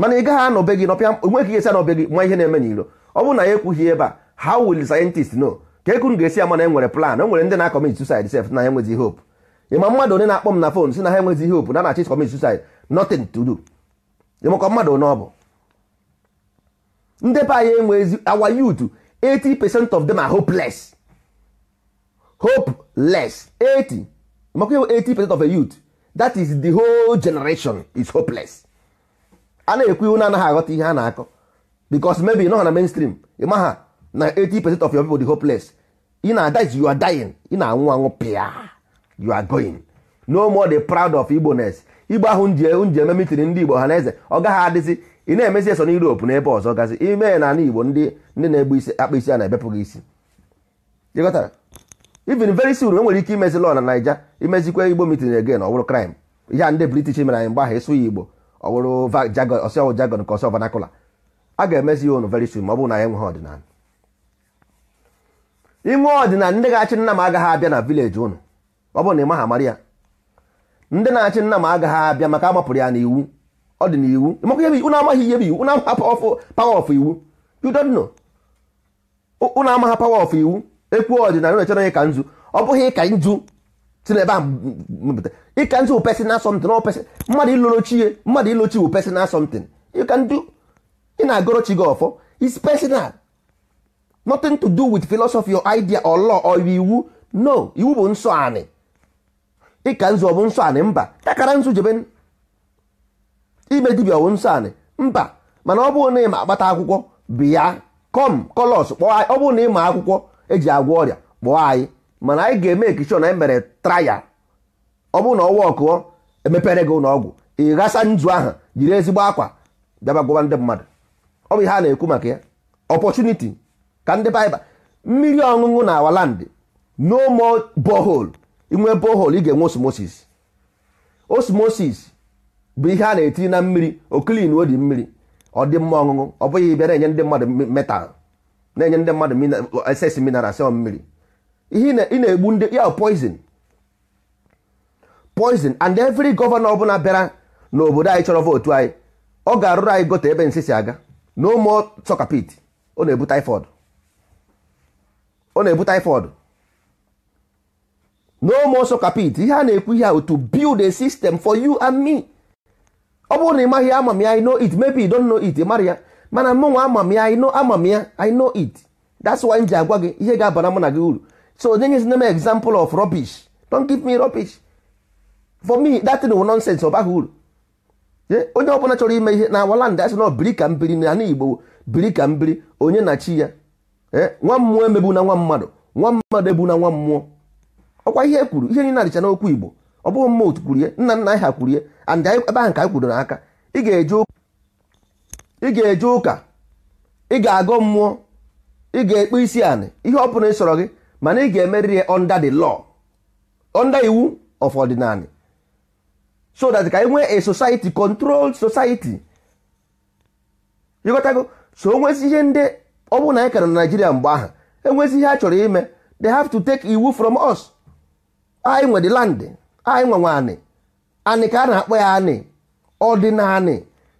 mana ị gaghị anọbe gị nọpịa onwe ka esi gị nwa ihe na-eme n'iro ọ bụrụ na ya ekwughị ebe a how will sayentist know ka ekunu ga-esi ama na enwere plan o e nwere ndị na-akọmit self na enwezi hope ịma mmadụ onye na-akpọ m na fon si na ha enweghị ihe opu na na-achị commit suicide nothing to do ịmakọ mmadụ onye ọ bụ ndị anyị enweghị our youth 80 percent of them are hopeless hopeless 80 ịmakọ iwe 80 percent of a youth that is the whole generation is hopeless a na-ekwu iwu na-anaghị aghọta ihe a na-akọ because maybe nọ ha na mainstream ịma ha na 80 percent of your people dị hopeless ị na-ada you are dying ị na-anwụ anwụ pịa you are going no more the proud of igboness igbo ahụ nji eme mitiri ndị igbo ha na eze ọ gaghị adịzi ị na-emesi eso na Europe na ebe ọzọ gazi ime na ala igbo ndị ndị na-egbu isi akpa isi a na-ebepụghị isi ịghọtara even very soon enwere ike imezi lọ na naija imezikwa igbo mitin again ọ crime ihe a ndị british mere anyị mgbe ahụ ịsụ ya igbo ọ bụrụ ọsịọwụ jagon ka ọsọ vanakula a ga-emezi ya unu very soon ma ọ bụrụ na ya enweghị ọdịnala inwe ọdịnala ndị ga-achị nna m agaghị abịa na vileji ụnụ ọ bụrụ na ị maha mara ya ndị na-achị nna m agaghị abịa maka amapụrụ ya n'iwu ọ dị n'iwu unu amaghị ihe bụ iwu unu amaghị power of iwu you don't know unu amaghị power iwu ekwu ọdịnala na echere ịka nzu ọ bụghị ịka nzu si n'ebe a mepụta ịka nzu pesin something ọ pesin mmadụ ilochi mmadụ ilochi pesin personal something ịka ndu ị na-agọrọ chi gị ọfọ is personal nothing to do with philosophy or idea or law or iwu no iwu bụ nsọ anị ịka nzu ọbụ nsọ anị mba takara nzu jebe ime dibia ọbụ nsọ anị mba mana ọ bụrụ na ịma akpata akwụkwọ bịa kọm kọlọs kpọọ anyị ọ bụrụ na ịma akwụkwọ eji agwọ ọrịa kpọọ anyị mana anyị ga-eme ekishọ na anyị mere traya ọ bụrụ na ọwa ọkụọ emepere gị ụlọọgwụ ị ghasa nzu aha jiri ezigbo akwa bịaba gwọba ndị mmadụ ọ bụ ihe a na-ekwu maka ya ọpọchuniti ka ndị baịba mmiri ọṅụṅụ na awalandị no mo bohol inwe bohol ị ga-enwe osmosis osmosis bụ ihe a na eti na mmiri okilin odi mmiri ọ dị mma ọṅụṅụ ọ bụghị bịa na-enye ndị mmadụ metal na-enye ndị mmadụ eses mineral sel mmiri ihe ị na-egbu ndị ya poison poison and every gọvanọ ọbụla bịara n'obodo anyị chọrọ vootu anyị ọ ga-arụrụ anyị gote ebe nsị si aga no more soccer pit ọ na-ebu typhoid ọ na-ebu typhoid no more socket ihe a na-ekwu ihe ahụ to build a system for you and me ọ bụrụ na ị maghị ama I know it maybe you don't know it mara ya mana mụ nwa I know ama ya I no it that's why m ji agwa gị ihe ga-abara mụ na gị uru so onye nyezina m example of rubbish don't give me rubbish for me that thing will nonsense ọ baghị uru onye ọbụla chọrọ ime ihe na awaland asị na biri ka mbiri na ana igbo biri ka mbiri onye na chi ya eh, nwa mmụọ emegbu na nwa mmadụ nwa mmadụ egbu na nwa mmụọ ọkwa ihe e kwuru ihe niile adịcha n'okwu igbo ọ bụghị mma otu kwuru ihe nna nna anyị ha kwuru and ebe ahụ ka anyị kwuru n'aka ị ga-eje ụka ị ga-agụ mmụọ ị ga-ekpe isi anị ihe ọ bụla ịsọrọ gị mana ị ga-emerịrị ya under the law under iwu of ordinary so that ka anyị nwee a society controlled society ịghọtago so onwezi ihe ndị ọ bụrụ na anyị kara na Naijiria mgbe aha enwezi ihe a chọrọ ime they have to take iwu from us anyị nwere land anyị nwe nwaanị anị ka a na-akpọ ya anị ọ dị na anị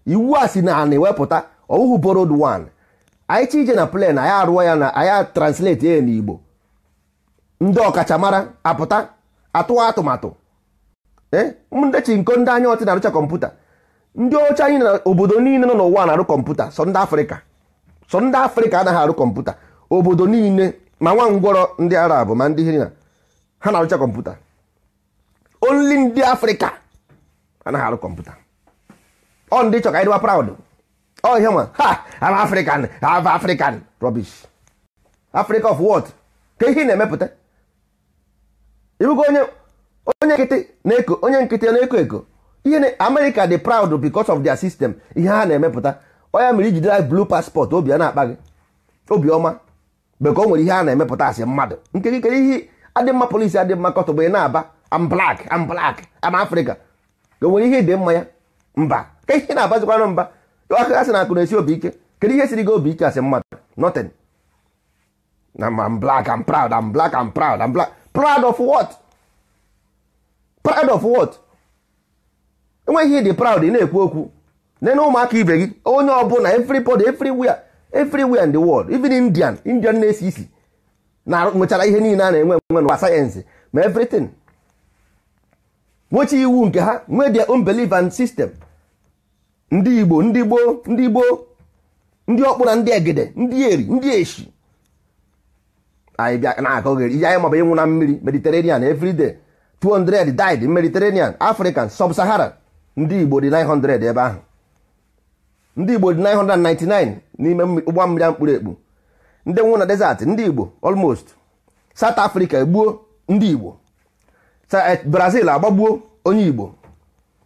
iwu a si na anị wepụta ọwụhụ borod wan anyị chi ije na plen anyị arụọ ya na anyị translate ya n'igbo ndị ọkachamara apụta atụwa atụmatụ eh, ndị nko ndị anya ọtị na-arụcha kọmputa ndị oche anyị na obodo niile nọ n'ụwa na-arụ kọmputa sọ ndị afrịka sọ ndị afrịka anaghị arụ kọmputa obodo niile ma nwa ngwọrọ ndị arab ma ndị hina ha na-arụcha kọmputa Onli ndị afrịka anaghị arụ kọmputa ọ ndị chọ ka anyị dịwa proud ọ oh, ihe ma ha am african have african rọbish. africa of what ka ihe ị na-emepụta ịbụgo onye nkịtị na-eko onye nkịtị na-eko eko ihe amerịka dị proud because of their system ihe ha na-emepụta onye mere ijidere blue passport obi a na-akpa gị obiọma beka o nwere ihe a na-emepụta asị mmadụ nke gị kere ihe adị mma polisi adị mma kọtọ bụ ị na-aba am black am black am afrịka o nwere ihe dị mma ya mba ka ihe na-abazikwanụ mba aka sị na akụ na-esi obi ike kedu ihe siri gị obi ike asị mmadụ nothing na am black am proud am black am proud am black proud of what proud of what enweghị ihe dị proud ị na-ekwu okwu nene ụmụaka ibe gị onye ọbụla everybody everywhere everywhere in the world even indian indian na-esi isi na nwechara ihe niile a na-enwe enwe n'ụwa sayensị ma everything nwechi iwu nke ha nwee their own belief ndị igbo ndị gboo ndị gboo ndị ọkpụ na ndị egede ndị eri ndị eshi anyị bịa na-akọgheri ihe anyị maọbụ ịnwụ na mmiri mediterranean everyday 200 died mediterranean african sub-sahara ndị igbo dị 900 ebe ahụ ndị igbo dị 999 n'ime ụgbọ mmiri a mkpụrụ ekpu ndị nwụ na desert ndị igbo almost south africa egbuo ndị igbo eh, brazil agbagbuo onye igbo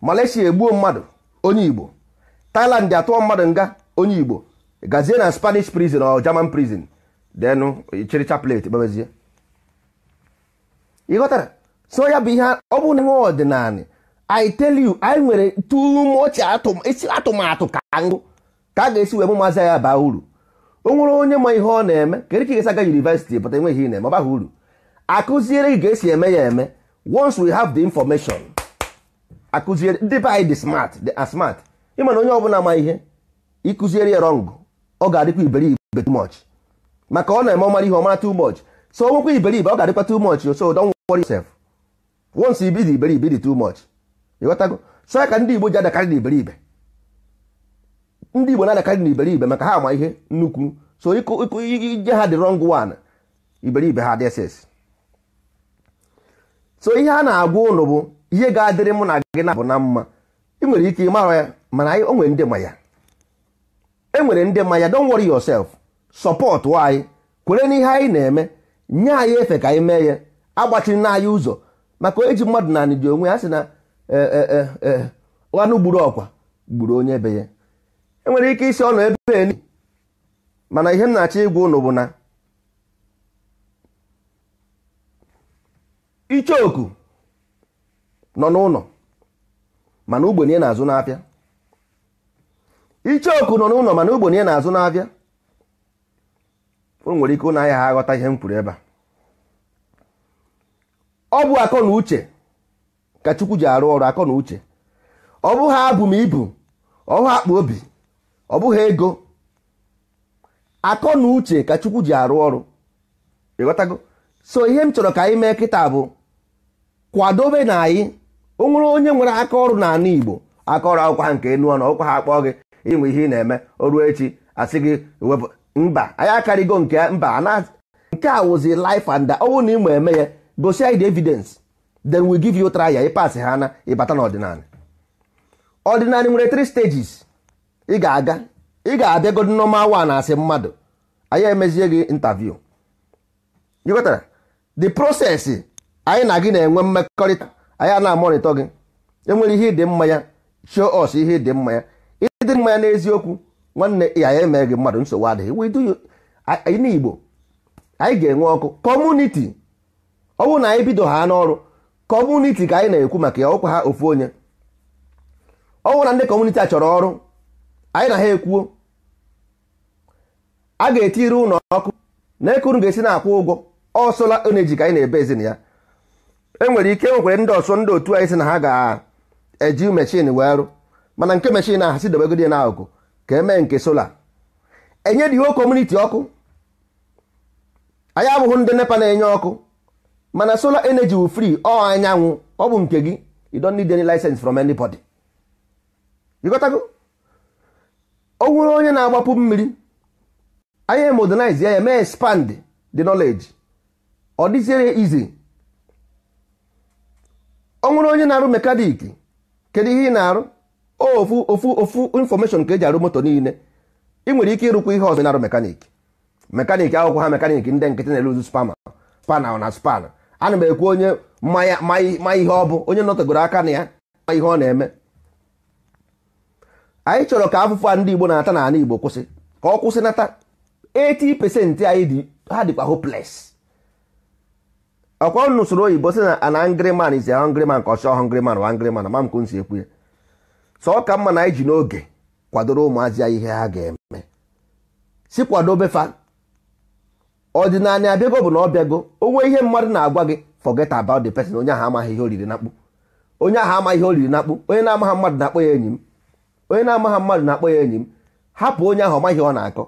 malaysia egbuo mmadụ onye igbo thailand atụọ mmadụ nga onye igbo gazie na spanish prison or german prison denu chịrịcha plate gbabezie ịghọtara so ya bụ ihe ọ bụ nwa ọdịnala i tell you anyị nwere too atụmatụ ka ngụ ka a ga-esi wee mụ maazị ya baa uru o nwere onye ma ihe ọ na-eme kedu ka ị ga-esi yunivesiti pụta enweghị ihe na-eme ọ baghị uru akụziere gị ga-esi eme ya eme once we have the information akụziere ndị be anyị dị smart dị asmart ịma na onye ọbụla ma ihe ịkụziere ya rọngụ ọ ga-adịkwa iberibe too much maka ọ na-eme ọmara ihe ọmara too much so o nwekwa iberibe ọ ga-adịkwa too much so don't worry yourself once ibidi iberibe dị too much ịghọtago so ya ka ndị Igbo ji adakarị na iberibe ndị Igbo na-anakarị na iberibe maka ha ama ihe nnukwu so ịkụ ije ha dị wrong one iberibe ha dss so ihe a na-agwa ụnụ bụ ihe ga-adịrị mụ na gị na bụ na mma ị nwere ike ịmara ya mana o nwere ndị ma ya enwere ndị ma ya don't worry yourself support anyị kwere n'ihe anyị na-eme nye anyị efe ka anyị mee ya agbachiri na anyị ụzọ maka eji mmadụ na anị ji onwe ya sị na ọnụ eh, eh, eh, gburu ọkwa gburu onye be ya enwere ike isi ọnụ ebe mana ihe m na-achọ ịgwa ụnụ bụ na ichoku nọ n'ụlọ mana ugbenye na-azụ nọ n'ụlọ mana ugbenye na-azụ n'afịa o nwere ike ụnụ anya ha aghọta ihe m kwuru ebe a ọ bụ akọ na uche ka Chukwu ji arụ ọrụ akọ na uche ọ bụ ha abụ m ibu ọ akpa obi ọ bụghị ego akọ na uche ka chukwu ji arụ ọrụ ịghọtago so ihe m chọrọ ka anyị mee kịta bụ kwadobe na anyị o nwere onye nwere aka ọrụ n'ala igbo aka ọrụ akwụkwọ ha nke enu ọnụ ọkwa ha akpọọ gị ịnwe ihe ị na-eme o echi asị gị wepụ mba anyị akarịgo nke mba nke a wụzi life and ọnwụ na ịma eme ya gosi anyị the evidence then we give you trial ịpasị ha na ịbata n'ọdịnala ọdịnala nwere three stages ị ga-aga ị ga-abịagodi nọma wa na asị mmadụ anyị emezie gị intaviu ịghọtara the process anyị na gị na-enwe mmekọrịta anyị a na-amọrịtọ gị enwere ihe ịdị mma ya show us ihe dị mma ya ịdị mma ya n'eziokwu nwanne ya emee gị mmadụ nsogbu adịghị we n'Igbo anyị ga-enwe ọkụ kọmuniti ọ bụrụ na anyị bido ha n'ọrụ kọmuniti ka anyị na-ekwu maka ya ọkwa ha ofu onye ọ bụrụ na ndị kọmuniti a chọrọ ọrụ anyị na ha ekwuo a ga-etiri ụlọ ọkụ na ekuru ga-esi na-akwụ ụgwọ ọ sola energy ka anyị na-ebe ezin ya enwere ike nwekwere ndị ọsọ ndị otu anyị si na ha ga-eji mechin wee rụ mana nke mechin ahụ si dobegodi ya n'akụkụ ka e mee nke sola enye dị ihe kọmuniti ọkụ anyị abụghị ndị nepa na-enye ọkụ mana sola eneji wu free ọ anyanwụ ọ bụ nke gị you don't need any license from anybody you gotago o nwere onye na-agbapụ mmiri anya modernize ya eme mee expand the knowledge ọ dịziere izi o nwere onye na-arụ mekanik kedu ihe ị na-arụ ofu ofu ofu infọmeshọn ka eji arụ moto niile ị nwere ike ịrụkwa ihe ọzọ na-arụ mekanik mekanik akwụkwọ ha mekanik ndị nkịtị na-eluzu spama pana na span ana m ekwu onye ma ihe ọ bụ onye nọtagoro aka na ya ma ihe ọ na-eme anyị chọrọ ka afụfụ a ndị Igbo na-ata na ala Igbo kwụsị ka ọ kwụsị nata 80% anyị dị ha dịkwa hopeless ọkwa n'usoro oyibo sị na an angry man is a hungry man ka ọ chọọ hungry wa ma m ka si ekwu ya ọ ka mma na anyị ji n'oge kwadoro ụmụazị ya ihe ha ga-eme si kwadobe fa ọdịnala abịago bụ na ọ bịago onwe ihe mmadụ na-agwa gị forget about the person onye ahụ amaghị ihe oriri na-akpụ onye ahụ amaghị ihe oriri na-akpụ onye na-amaghị mmadụ na-akpọ ya enyi m onye na-amaghị mmadụ na-akpọ ya enyi m hapụ onye ahụ ọmaghị ọ na-akọ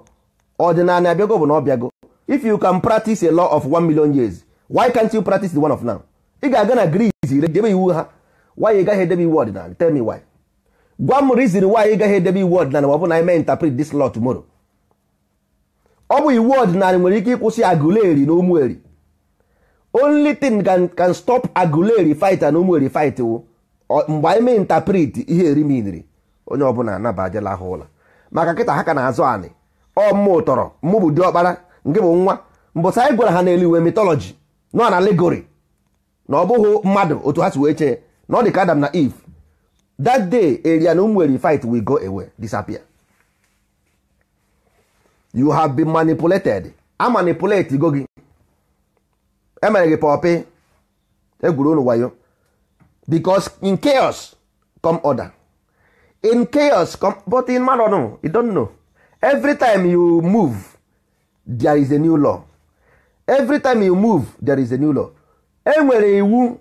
ọdịnala abịago bụ na ọ bịago if you can practice a law of one million years why can't you practice the one of now ị ga-aga na Greece debe iwu ha why ị gaghị edebe iwu ọdịnala tell me why gwa m reason why ị gaghị edebe iwu ọdịnala ma ọ bụ na ime interpret this law tomorrow ọ bụ iwu ọdịnala nwere ike ịkwụsị Aguleri na Ụmụeri only thing can, can stop Aguleri fight na Ụmụeri fight wụ mgbe anyị mee interpret ihe eri miniri onye ọbụla anabajela ha ụlọ maka nkịta ha ka na-azụ anị ọ mụ tọrọ mụbụ bụ ọkpara nke bụ nwa mbọsa anyị gwara ha n'eluigwe mitọlọji nọ na legori na ọ bụghị mmadụ otu ha si wee chee na ọ dị ka Adam na Eve that day eria na ụmụ fight we go away disappear you have been manipulated a manipulate go gị emere gị pọpị egwuru wayo because in chaos come order in chaos but in man no you don't know every time you move there is a new law every time you move there is a new law enwere iwu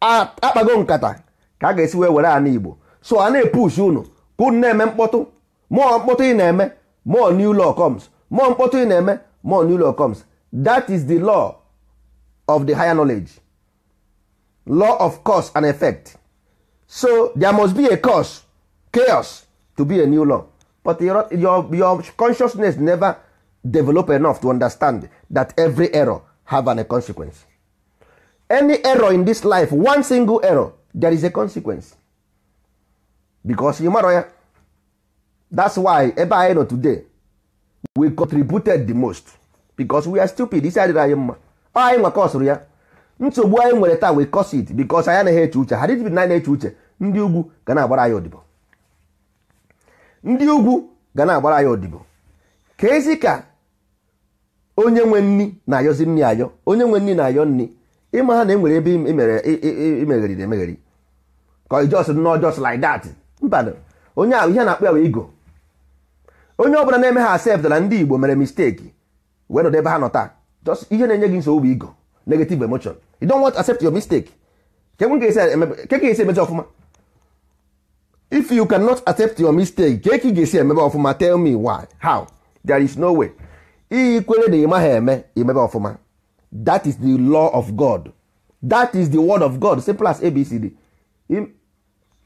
akpago nkata ka a ga-esi wee were ana igbo so a na-epush unu ka unu na-eme mkpọtụ mụọ mkpọtụ ị na-eme mụọ new law comes mụọ mkpọtụ ị na-eme mụọ new law comes that is the law of the higher knowledge law of cause and effect so there must be a cause chaos to be a new law but your, your, your consciousness never develop enough to understand that every error have an, a consequence any error in this life one single error there is a consequence because you ya that's why ebe anyị nọ today we contributed the most because we are stupid isi adịrị anyị mma anyị nwa kọsụrụ ya nsogbu anyị nwere taa we cause it because anyị anaghị eche uche ha dịtbi na anyị na-eche uche ndị ugwu ga na-agbara anyị odibo ndị ugwu ga na-agbara anyị odibo ka esi ka onye nwe nni na-ayọzi nni ayọ onye nwe nni na-ayọ nni ịma ha na enwere ebe na emegheri ka ijos nọ jos like that mba onye ahụ ihe na-akpọ ya wee igo onye ọbụla na-eme ha asept na ndị igbo mere misteki wee nọdụ ebe ha nọ taa just ihe na-enye gị nsogbu igo negative emotion you don't want to accept your mistake ka e ka esi e e emechi ọfụma if you cannot accept your mistake ka ga-esi emebe ọfụma tell me why how there is no way iyi kwere na ịmaghị eme imebe ọfụma that is the law of god that is the word of god simple as abcd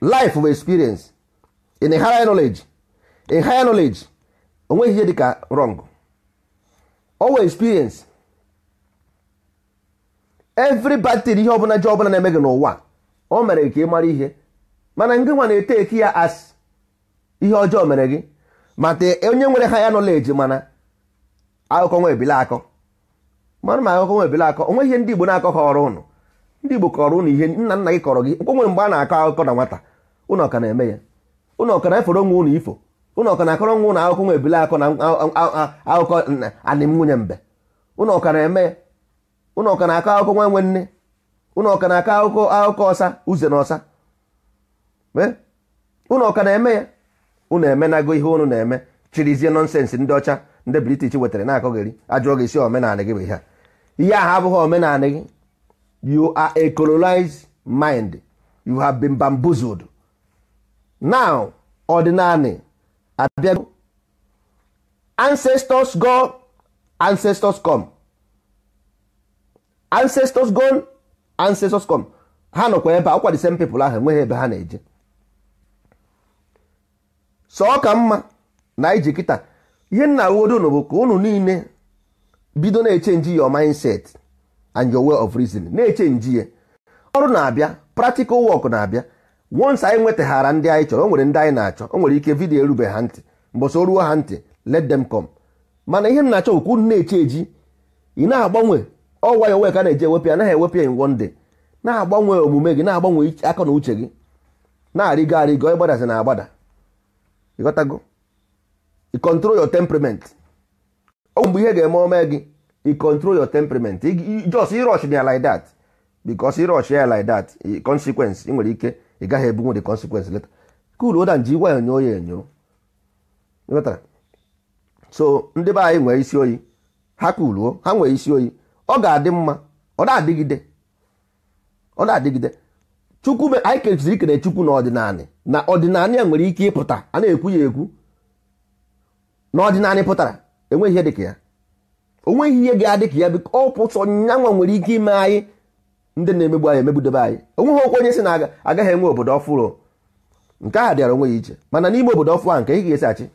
life of experience in a higher knowledge a higher knowledge onweghị ihe dịka wrong owe experience every bad thing ihe ọbụla ji ọbụla na-eme gị n'ụwa o mere ka ị mara ihe mana ndị nwa na-ete eti ya as ihe ọjọọ mere gị mata onye nwere ha ya nọleji mana akụkọ nwa ebile akọ mana ma akụkọ nwa ebile akọ onwe ihe ndị Igbo na-akọ kọrọ ụnụ ndị Igbo kọrọ ụnụ ihe nna nna gị kọrọ gị nkwe nwere mgbe a na-akọ akụkọ na nwata ụnụ ọka na-eme ya ụnụ ọka na-efere nwa ụnụ ifo ụnụ ọka na-akọrọ nwa ụnụ akụkọ nwa ebile akọ na akụkọ anịm nwunye mbe ụnụ ọka na-eme ya ụnụ ọka na-akọ akụkọ nwa nwe nne ụnụ ọka na-akọ akụkọ akụkọ ọsa uze na ọsa unu ọka na-eme ya unu emenago ihe unu na-eme chirizie nọnsensị ndị ọcha ndị british wetara na-akọgheri ajụọ gị isi omenala gị bụ ihe a ihe ahụ abụghị omenala gị you are a colonized mind you have been bamboozled now ordinary abịa ancestors go ancestors come ancestors go ancestors come ha nọkwa ebe akwa the same people ahụ enweghị ebe ha na-eje sọ ka mma na iji kịta ihe nna awodonu bụ ka unu niile bido na-echenji your mindset and your way of reasoning na-echenji ya ọrụ na-abịa practical work na-abịa once anyị nwetaghara ndị anyị chọrọ o nwere ndị anyị na-achọ o nwere ike vidiyo erube ha ntị so ruo ha ntị let them come mana ihe nna achọ okwu na-eche eji ị na-agbanwe ọwa ya onwe ka na-eji ewepụ anaghị naghị ya in one day na-agbanwe omume gị na-agbanwe aka na uche gị na-arịgo arịgo ịgbadazi na agbada ịghọtago i control your temperament ọ mgbe ihe ga-eme ome gị i control your temperament just ịrọch ya like dat because ịrọch ya like that eh, consequence ị nwere ike ị gaghị ebu the consequence leta cool oda nji gwa enyo ya enyo ịghọtara so ndị be anyị nwere isi oyi ha kuluo ha nwere isi oyi ọ ga-adị mma ọ na-adịgide ọ na-adịgide chukwu anyị kesiri ikere chukwu na ọdịnanị na ọdịnanị a nwere ike ịpụta a na-ekwu ya ekwu na ọdịnalị pụtara enweghị ihe dịka ya onweghị ihe ga-adị ka ya bụ ọ pụtọ nyanwa nwere ike ime anyị ndị na-emegbu anyị emegbudebe anyị onweghị okwu onye si na agaghị enwe obodo ọfụrụ nke a dịara onwe ya iche mana n'ime obodo ọfụ ahụ nke ị ga-esi achị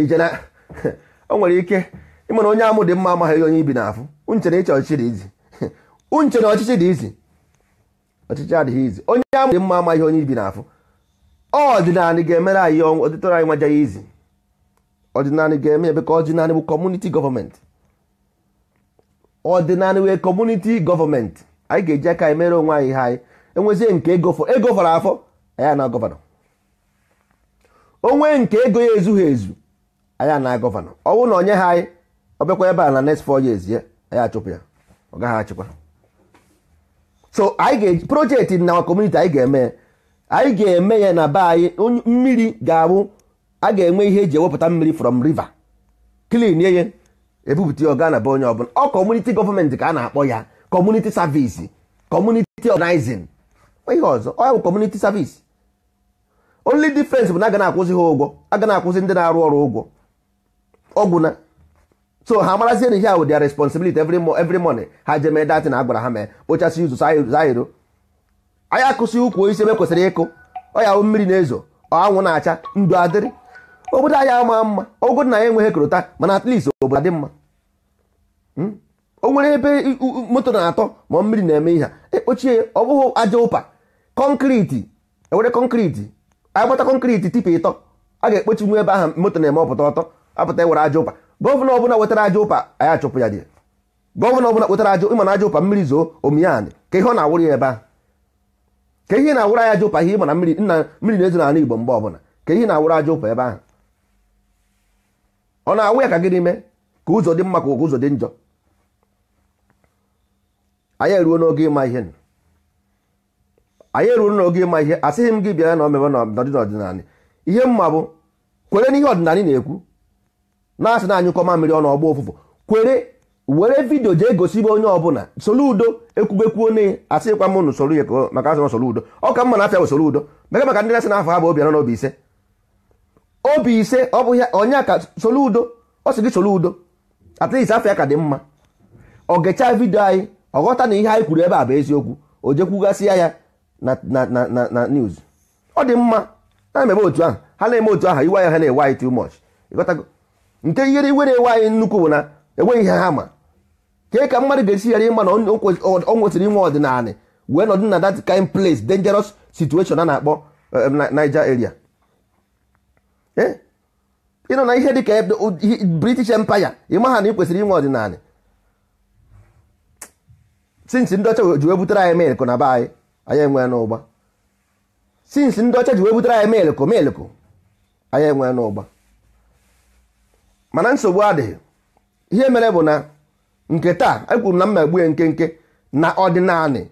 ije na o nwere ike ịmana onye amụ dị mma amaghị onye ibi n'afụ unchere ịchọ ọchịchị dị izi unchere ọchịchị dị izi ọchịchị adịghị izi onye a mụrụ mma amaghị onye ibi n'afọ ọdịnala ga-emere anyị ọdịtọrọ anyị nwajaghị izi ọdịnala ga-eme ebe ka ọdịnala bụ kọmuniti gọọmenti ọdịnala wee kọmuniti gọọmenti anyị ga-eji aka anyị mere onwe anyị ihe anyị enwezie nke ego fọrọ afọ anyị na gọvanọ onwe nke ego ya ezughị ezu anyị na gọvanọ ọnwụ na onye ha anyị ọbịakwa ebe a na next four years ya anyị achụpụ ya ọ gaghị achịkwa so anyị ga projekti na kọmuniti anyị ga-eme anyị ga-eme ya na be anyị mmiri ga-abụ a ga-enwe ihe eji ewepụta mmiri from river clean ya ebupụta ọga na be onye ọbụla ọ kọmuniti gọọmenti ka a na-akpọ ya kọmuniti savisi kọmuniti ọganizin ihe ọzọ ọ bụ kọmuniti savisi only difference bụ na ga na-akwụsị ha ụgwọ aga na-akwụsị ndị na-arụ ọrụ ụgwọ ọgwụ so ha marazie na ihe ahụ dia responsibility every every morning ha je mee na agwara ha mee kpochasị ụzọ zairo anya akụsị ukwu osisi ebe kwesịrị ịkụ ọya mmiri na-ezo anwụ na-acha ndụ adịrị obodo anyị ama mma ogo na ya enweghị korota mana at least obodo adị mma hmm? o nwere ebe moto na-atọ ma mmiri na-eme ihe ekpochie ọ bụghị aja ụpa kọnkriti ewere kọnkriti agbata kọnkriti tipa ịtọ a ga-ekpochi nwe ebe ahụ moto na-eme ọpụta ọtọ apụta ewere aja ụpa gọvanọ ọbụla wetara aja ụpa anyị achụpụ ya dị gọvanọ ọbụla wetara aja ịma na aja ụpa mmiri zoo omiyan ka ihe ọ na-awụrụ ya ebe ahụ. ka ihe na-awụrụ ya aja ụpa ihe ịma na mmiri nna mmiri na-ezo n'ala Igbo mgbe ọbụla ka ihe na-awụrụ aja ụpa ebe ahụ ọ na-awụ ya ka gịnị mee ka ụzọ dị mma ka ụzọ dị njọ anyị eruo n'oge ịma ihe anyị eruo n'oge ịma ihe asịghị m gị bịa na omebe n'ọdịnala ihe mma bụ kwere n'ihe ọdịnala na-ekwu na-asị na anyụkọma mmiri ọnụ ọgba ụfụfụ kwere were vidio jee gosibe onye ọbụla soro udo ekwubekwuo onye asịkwa m n'usoro ya maka asị soro udo ọ ka mma na afịa soro udo mega maka ndị na-asị na afọ ha bụ obi anọ na obi ise obi ise ọ bụ ya onye ka soro udo ọ sị gị soro udo at least afịa ka dị mma ọ gechaa vidio anyị ọ ghọta na ihe anyị kwuru ebe a bụ eziokwu o jekwugasịa ya na news ọ dị mma na-emebe otu ahụ ha na-eme otu ahụ iwe ya ha na-ewe anyị too much ịghọtago nke ihere iwere ewe anyị nnukwu bụ na enweghị ihe ha ma kee ka mmadụ ga-esi ghara ịma na ọ nwesịrị inwe ọdịnala wee nọdụ na that kind place dangerous situation a na-akpọ eh, Niger area eh? ịnọ na ihe dị ka British Empire ịma ha na ị kwesịrị inwe ọdịnala since ndị ọcha ji wee butere anyị melkụ na be anyị anyị enwe n'ụgba since ndị ọcha ji wee butere anyị enwe n'ụgba mana nsogbu adịghị ihe mere bụ na nke taa ekwuru na mmegbu ya nkenke na ọdịnanị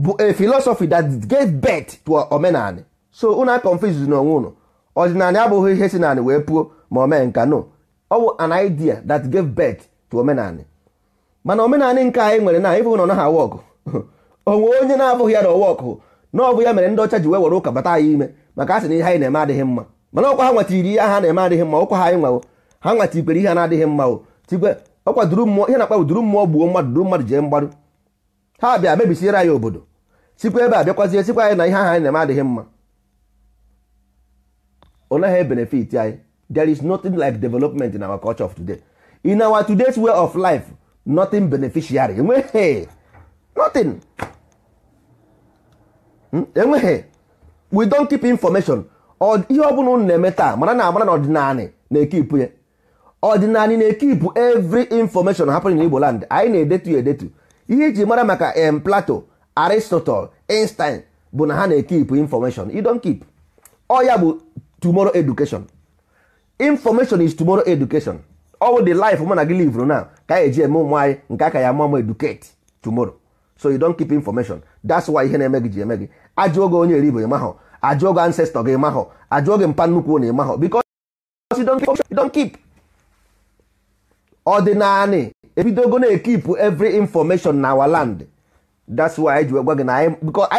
bụ a philosophy that gave birth to omenanị so unu a confuse n'onwe unu ọdịnanị abụghị ihe si nanị wee puo ma o mee nka no ọ bụ an idea that gave birth to omenanị mana omenali nke anyị nwere na ịbụghị na ọ naghị awa onwe onye na-abụghị ya na ọwa ọkụ na ọ bụ ya mere ndị ọcha ji wee were ụka bata ya ime maka a sị na ihe anyị na-eme adịghị mma mana ọkwa ha nwetiri ihe ha na-eme adịghị mma ọkwa ha anyị nwawo ha nwa tikwere ihe na-adịghị mma o tikwe ọ kwaduru mmụọ ihe na-akpa duru mmụọ gbuo mmadụ duru mmadụ jee mgbarụ ha bịa mebisiere anyị obodo sikwa ebe a bịakwazie sikwa anyị na ihe aha anyị na-eme adịghị mma ọ naghị benefit anyị there is nothing like development in our culture of today in our today's way of life nothing beneficiary enweghị nothing hmm? enweghị we don't keep information ihe ọ bụla unu na-eme taa mara na amara na ọdịnala na-ekipụ ya ọdịnala na-ekipụ every information happening in Igbo land anyị na-edetu edetu ihe iji mara maka em Plato Aristotle Einstein bụ na ha na-ekipụ information you don't keep ọ ya bụ tomorrow education information is tumoro education all the life mụ na gị live na ka eji eme ụmụ anyị nke aka ya mụọ mụ educate tomorrow so you don keep information that's why ihe na-eme gị ji eme gị ajụọ gị onye eribo ịmahọ ajụọ gị ancestor gị ịmahọ ajụọ gị mpa nnukwu na ịmahọ because you keep ọdịnanị ebidogo na-ekipụ evry information na our land that's why anyị ji gwa gị na anyị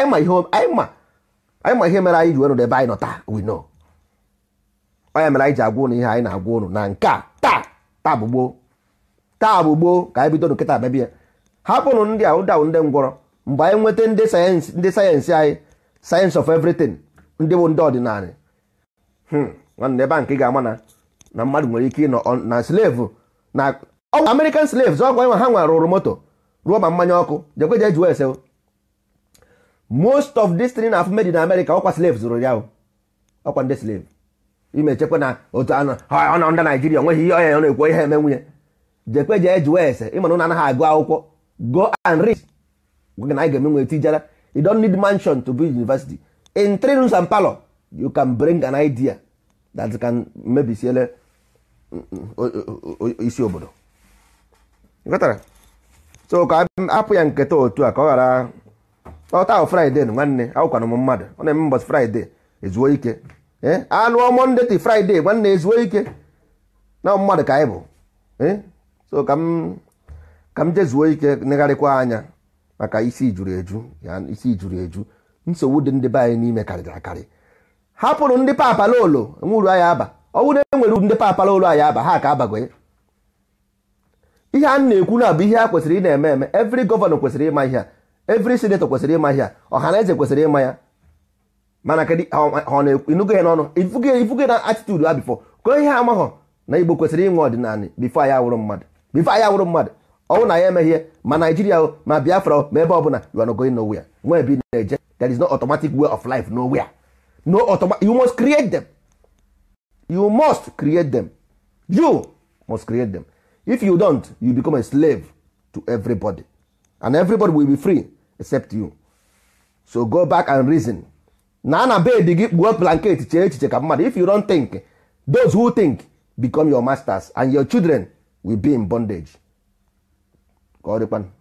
ma ihe mere anyị ji were ebe anyị nọ taa we know onye mere anyị ji agwa ụnụ ihe anyị na-agwa ụnụ na nke a taa taa bụ gboo taa bụ gboo ka anyị bido nkịta babia hapụrụ ndị a dawụ ndị ngwọrọ mgbe anyị nweta ndị sayensị ndị sayensị anyị sayensị of everything ndị bụ ndị ọdịnala hmm, nwanne ebe a nke ga-ama na mmadụ nwere ike ịnọ na slevu na American slaves ọgwụ nwa ha nwa rụrụ moto ruo ma mmanya ọkụ jekwe jee jụọ most of this thing na-afụ made in America ọkwa slaves zụrụ ya ọkwa ndị slave imechekwa na otu anọ ọ ndị Naijiria nweghị ihe ọya ọ na-ekwu ihe eme nwunye jekwe jee ese ịmana na anaghị agụ akwụkwọ go and read gwa na anyị ga-eme tijara you don't need mansion to be university in three rooms and parlor you can bring an idea that can mebisiele isi obodo ịghọtara so ka apụ ya nketa otu a ka ọ ghara ọta ahụ fraịde nwanne awụkwana m mmadụ ọ na-eme mbọchị fraịde ezuo ike e, anụ anụọ ndị ti fraịde nwanne ezuo ike na mmadụ ka anyị bụ e, so ka m ka m jezuo ike negharịkwa anya maka isi juru eju isi juru eju nsogbu dị ndị be anyị n'ime karịrị akarị hapụrụ ndị papa papalolo nwuru anyị aba ọnwụ e nwere uru ndị papala ụlọ anyị aba ha ka abago ihe a na-ekwu na bụ ihe a kwesịrị ị na-eme eme evri gọvanọ kwesịrị ịma ihe a evri sinetọ kwesịrị ịma ihe a ọha na eze kwesịrị ịma ya mana kedu ọ na-enugo ya n'ọnụ ifuge na atitudu ha bifọ ko ihe amaghọ na igbo kwesịrị ịnwe ọdịnala bifo anyị awụrụ mmadụ bifo anyị awụrụ mmadụ ọnwụ na ya emeghị ihe ma naijiria ma biafra ma ebe ọ you are not going nowhere ebi na-eje that is no automatic way of life nowhere no automatic you must create them you must create them you must create them if you don't you become a slave to everybody and everybody will be free except you so go back and reason na na bed gị kpuo blanket chee echiche ka mmadụ if you don't think those who think become your masters and your children will be in bondage ka